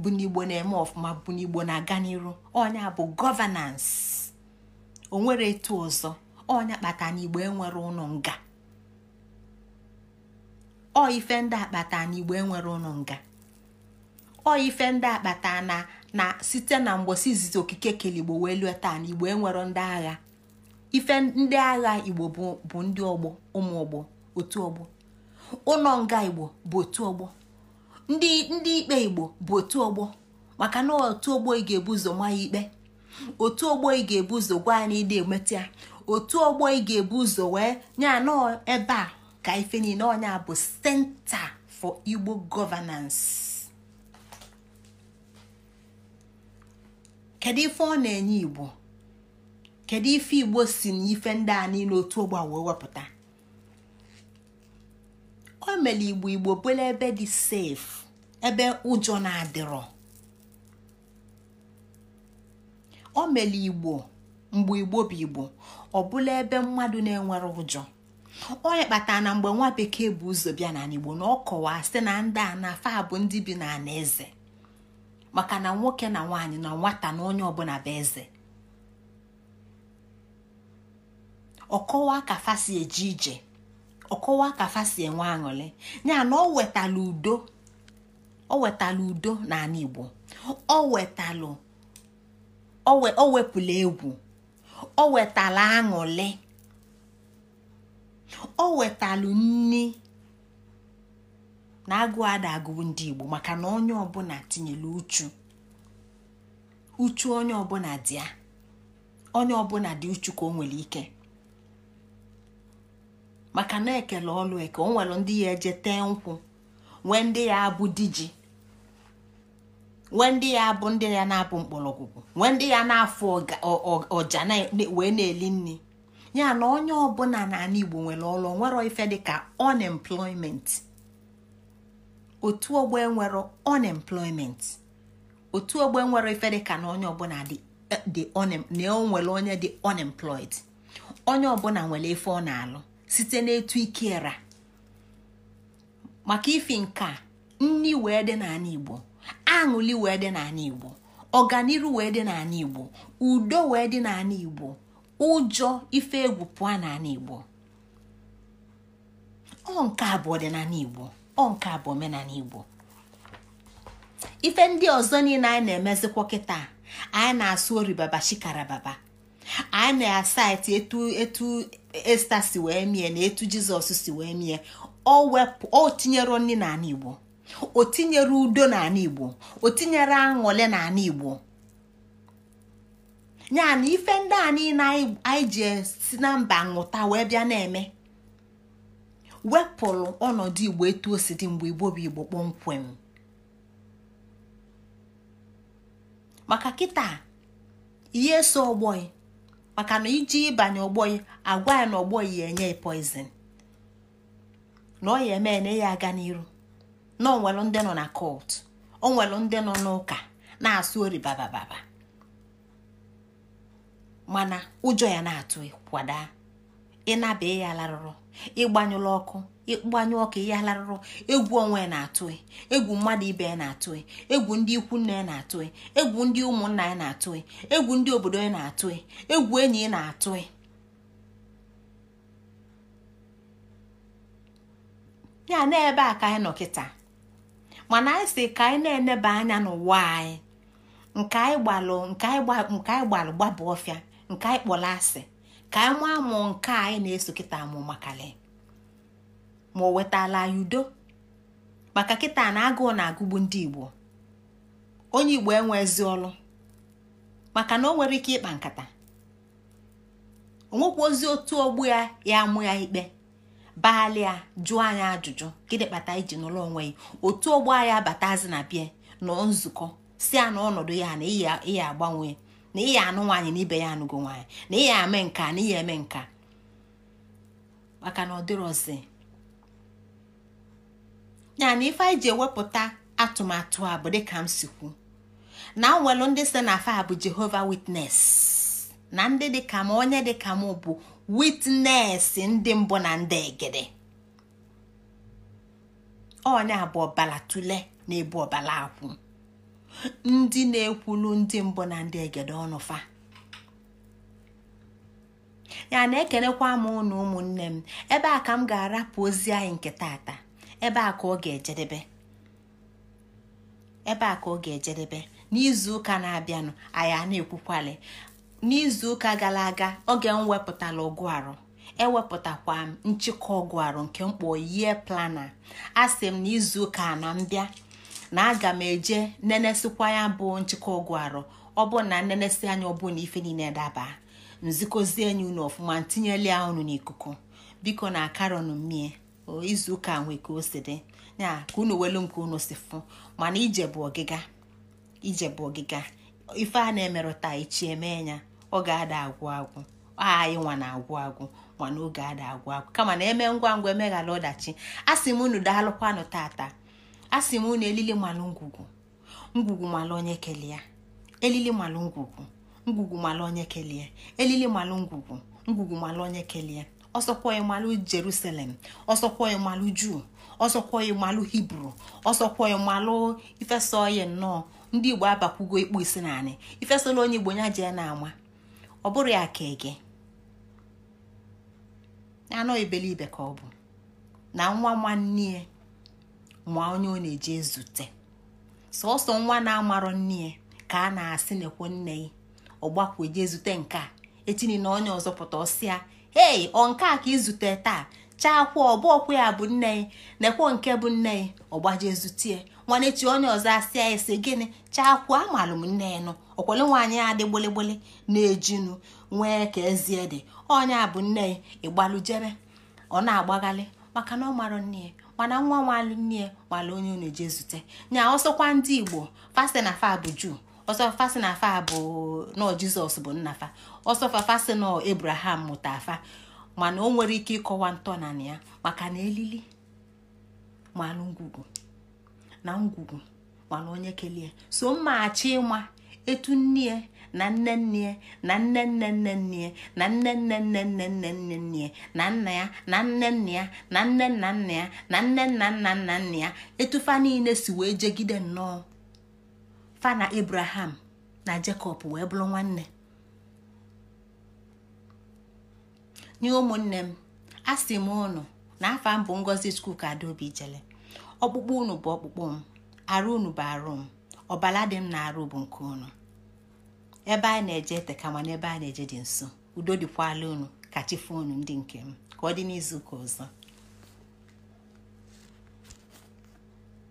bụ n'igbo na-eme ọfụma bụ n'igbo na-aga n'iru onye bụ gọvanans onwere etu ọzọ onye kpata na enwere ụlọ nga ọ ife ndị akpata na igbo enwere ụnụ nga ọ ife ndị akpata na na site na mgbosi izizi okike keligbo wee lue taa na igbo enwero ndị agha ife ndị agha igbo bụ ndị ọgbọ ụmụ ọgbọ otu ọgbọ ụlọ nga igbo bụ otu ọgbọ ndị ndị ikpe igbo bụ otu ọgbọ maka na otu ọgbọ ị ga-ebu ụzọ ma ya ikpe otu ọgbọ ị ga-ebu ụzọ gwa ya na ịda emeta ya otu ọgbọ ị ga-ebu ụzọ wee nye anọ ebe a ka ife niile onye a bụ senta for igbo governance kedu ife ọ na-enye igbo kedu ife igbo si na ife ndị a niile otu ogbe wee wepụta o mere igbo igbo bụla ebe dị sef ebe ụjọ na-adịrọ o mere igbo mgbe igbo bụ igbo ọ bụla ebe mmadụ na-enwere ụjọ onye kpatara na mgbe nwa bekee bụ ụzọ bịa n'ala Igbo na ọ kọwaa site na ndị a na afa bụ ndị bi n'ala eze maka na nwoke na nwaanyị na nwata na onye ọbụla bụ eze ọkọwa ka fasi eje ije ọkọwa ka fasi enwe aṅụrị ya na ọ wetala udo ọ wetala udo n'ala Igbo ọ wetalụ o wepụla egwu ọ wetala aṅụrị o wetalụ nni na agụ ada agụụ ndị igbo maka na onye ọbụla tinyere uchu uchu onye ọbụla dị ya onye ọbụla dị uchu ka o nwere ike maka na ekele ọlụ eke o nwere ndị ya eje tee nkwụ nwee ndị ya abụ diji nwee ndị ya abụ ndị ya na-abụ mkpọrọgwụgwụ nwee ndị ya na-afụ ọja wee na-eli nri ya na onye ọbụla n'ala igbo nwere ọrụ nwere ife dịka unemployment otu ogbe nwere unemployment otu ogbe nwere ife dịka na onye ọbụla dị eh, onwere onye dị unemployed onye ọbụla nwere ife ọ na-alụ site n'etu ikera maka ifi nka nni wee dị n'ala igbo aṅụli wee dị n'ala igbo ọganiru wee dị n'ala igbo udo wee dị n'ala igbo ụjọ ife egwu pụọ n'ala igbo ọ nke a bụ ọdịnala igbo ọ nke a bụ omenala igbo ife ndị ọzọ niile anyị na-emezikwa kịta anyị na-asụ oribaba shikarababa anyị na-asaịtị etu etu esta si wee mie na etu jizọs si wee mie o tinyere nri n'ala igbo o tinyere udo n'ala igbo o tinyere aṅụle n'ala igbo ya na ife ndị a niile anyị ji si na mba ṅụta wee bịa na-eme wepụrụ ọnọdụ igbo etu o si dị mgbe igbo bụ igbo kpọmkwem maka kịta ihe so ọgbọị maka na iji ịbanye ọgbọị agwa ya na ọgbọị ya enye poizin na ọ ya eme na ya aga n'iru na onwelu ndị nọ na kọt onwelu ndị nọ n'ụka na-asụ oribabababa mana ụjọ ya na-atụ kwada ịnaba ya larụrụ ịgbanyụla ọkụ ịgbanyụ ọkụ ya larụrụ egwu onwe ya na-atụ egwu mmadụ ibe ya na-atụ egwu ndị ikwu ya na-atụ egwu ndị ụmụnna ya na-atụ egwu ndị obodo ya na-atụ egwu enyi ya na-atụ ya na ebe a ka anyị nọ kịta mana anyị si ka anyị na-eneba anya n'ụwa anyị nke anyị gbalụ nke anyị gbalụ gbaba ọfịa nke anyị kpọrọ asị ka anyị nwa amụ nke anyị na-eso kịta amụ makali ma o wetala anyị udo maka kịta na agụụ na-agụgbu ndị igbo onye igbo enwezi ọlụ maka na o nwere ike ịkpa nkata onwekwa ozi otu ogbu ya ya amụ ya ikpe baali ya jụọ anyị ajụjụ gịnị kpata iji n'ụlọ onwe ya otu ogbu anyị abatazi na bịa nọ nzukọ si ya na ọnọdụ ya na ịya agbanwe na ya anụ nwaanyị na ibe ya anụgo nwaanyị na ị ya eme nka na ihe eme nka maka na ọ dịrọzi ya ife anyị ji ewepụta atụmatụ a bụ dịka m si kwu na nwelu ndị si na fa bụ jehova witnes na ndị dịka m onye dịka m bụ witness ndị mbụ na ndị egede onye a na ebu ọbala akwụ ndị na-ekwulu ndị mbụ na ndị egede ọnụ fa ya na-ekelekwa m ụnụ ụmụnne m ebe a ka m ga-arapụ ozi anyị nke tata ebe a ka ọ ga-ejedebe ebe a ka ọ ga-ejedebe n'izu ụka na-abịanụ anyị na-ekwukwali n'izu ụka gara aga oge m wepụtala ọgụ arụ ewepụtakwa m nchịkọ ọgụ arụ nke mkpọ yie plana a sị m n'izu ụka na m bịa na aga m eje nenesikwa ya bụ nchịkwa ụgwọ arụ ọ na nnenesi anya ọbụ na ife niile daba nzikozie enyi unu ọfụma ntinyela ya unu n'ikuku biko na karọn mmie izuụka nwe ka o si dị ya ka unu welu nke unu si fụ mana ije bụ ọgịga ije bụ ọgịga ife a na-emerụta echi eme ya ọ ga-ada agwụ agwụ anyị nwa na-agwụ agwụ mana oge ada agwụ agwụ kama na eme ngwa ngwa emeghara ọdachi a sị m unu daalụkwanụ tata a sị m na elili malụ ngwugwu ngwugwu malụ onye kelee ya elili malụ ngwugwu ngwugwu malụ onye kelee ya elili malụ ngwugwu ngwugwu malụ onye kelee ya ọsọkwa ịmalụ jerusalem ọsọkwa ịmalụ juu ọsọkwa ịmalụ hibru ọsọkwa ịmalụ ifesa oye nnọọ ndị igbo abakwugo ikpu isi naanị ifesala onye igbo nya jee na-ama ọ bụrụ ya ka ege anọ ibelibe ka ọ bụ na nwa nwanne ya ma onye ọ na-eje zute sọsọ nwa na-amarọ nne ya ka a na-asị nekwo nne ya ọgbakwu eje zute nke a etini na onye ọzọ pụta ọsịa ee ọ nke a ka izute taa chaakwa ọbụ ọkwụ ya bụ nne ya nekwo nke bụ nne ya ọgbaje zute nwanechi onye ọzọ asịa ya sị gịnị chaakwu amalụ m nne ya nụ ọkwale nwaanyị ya dị gboligboli na-ejinu nwee ka ezie dị onye a bụ nne ya ịgbalụ ọ na-agbaghalị maka na ọ marọ nne ya mana nwa nwalụ nne ya onye unu eje zute nya ọsọkwa ndị igbo fasi na fa bụ juu ọsọ fasi na fa bụ nọ jizọs bụ nnafa ọsọfa fasi nọ ebraham mụta afa mana o nwere ike ịkọwa ntọ na ya maka na elili malụ ngwugwu na ngwugwu mana onye kelee so mmaghachi ịma etu nne na nne nne na nne nne nne nne na nne nne nne nne nne nne nne na nna ya na nne nna ya na nne nna nna ya na nne nna nna nna nna ya etufa niile si wee jegide nnọọ Fana na Abraham na Jacob wee bụrụ nwanne nye ụmụnne m asị m ụnụ na afa m bụ ngozi skuul ka adaobi jele ọkpụkpụ unu bụ ọkpụkpụ m arụ unu bụ arụ m ọbala dị m na arụ bụ nke unu ebe a na-eje ma mana ebe a na-eje dị nso udo dịkwala unu ka chi fonu ndị nke m ka ọ dị n'izu ụka ọzọ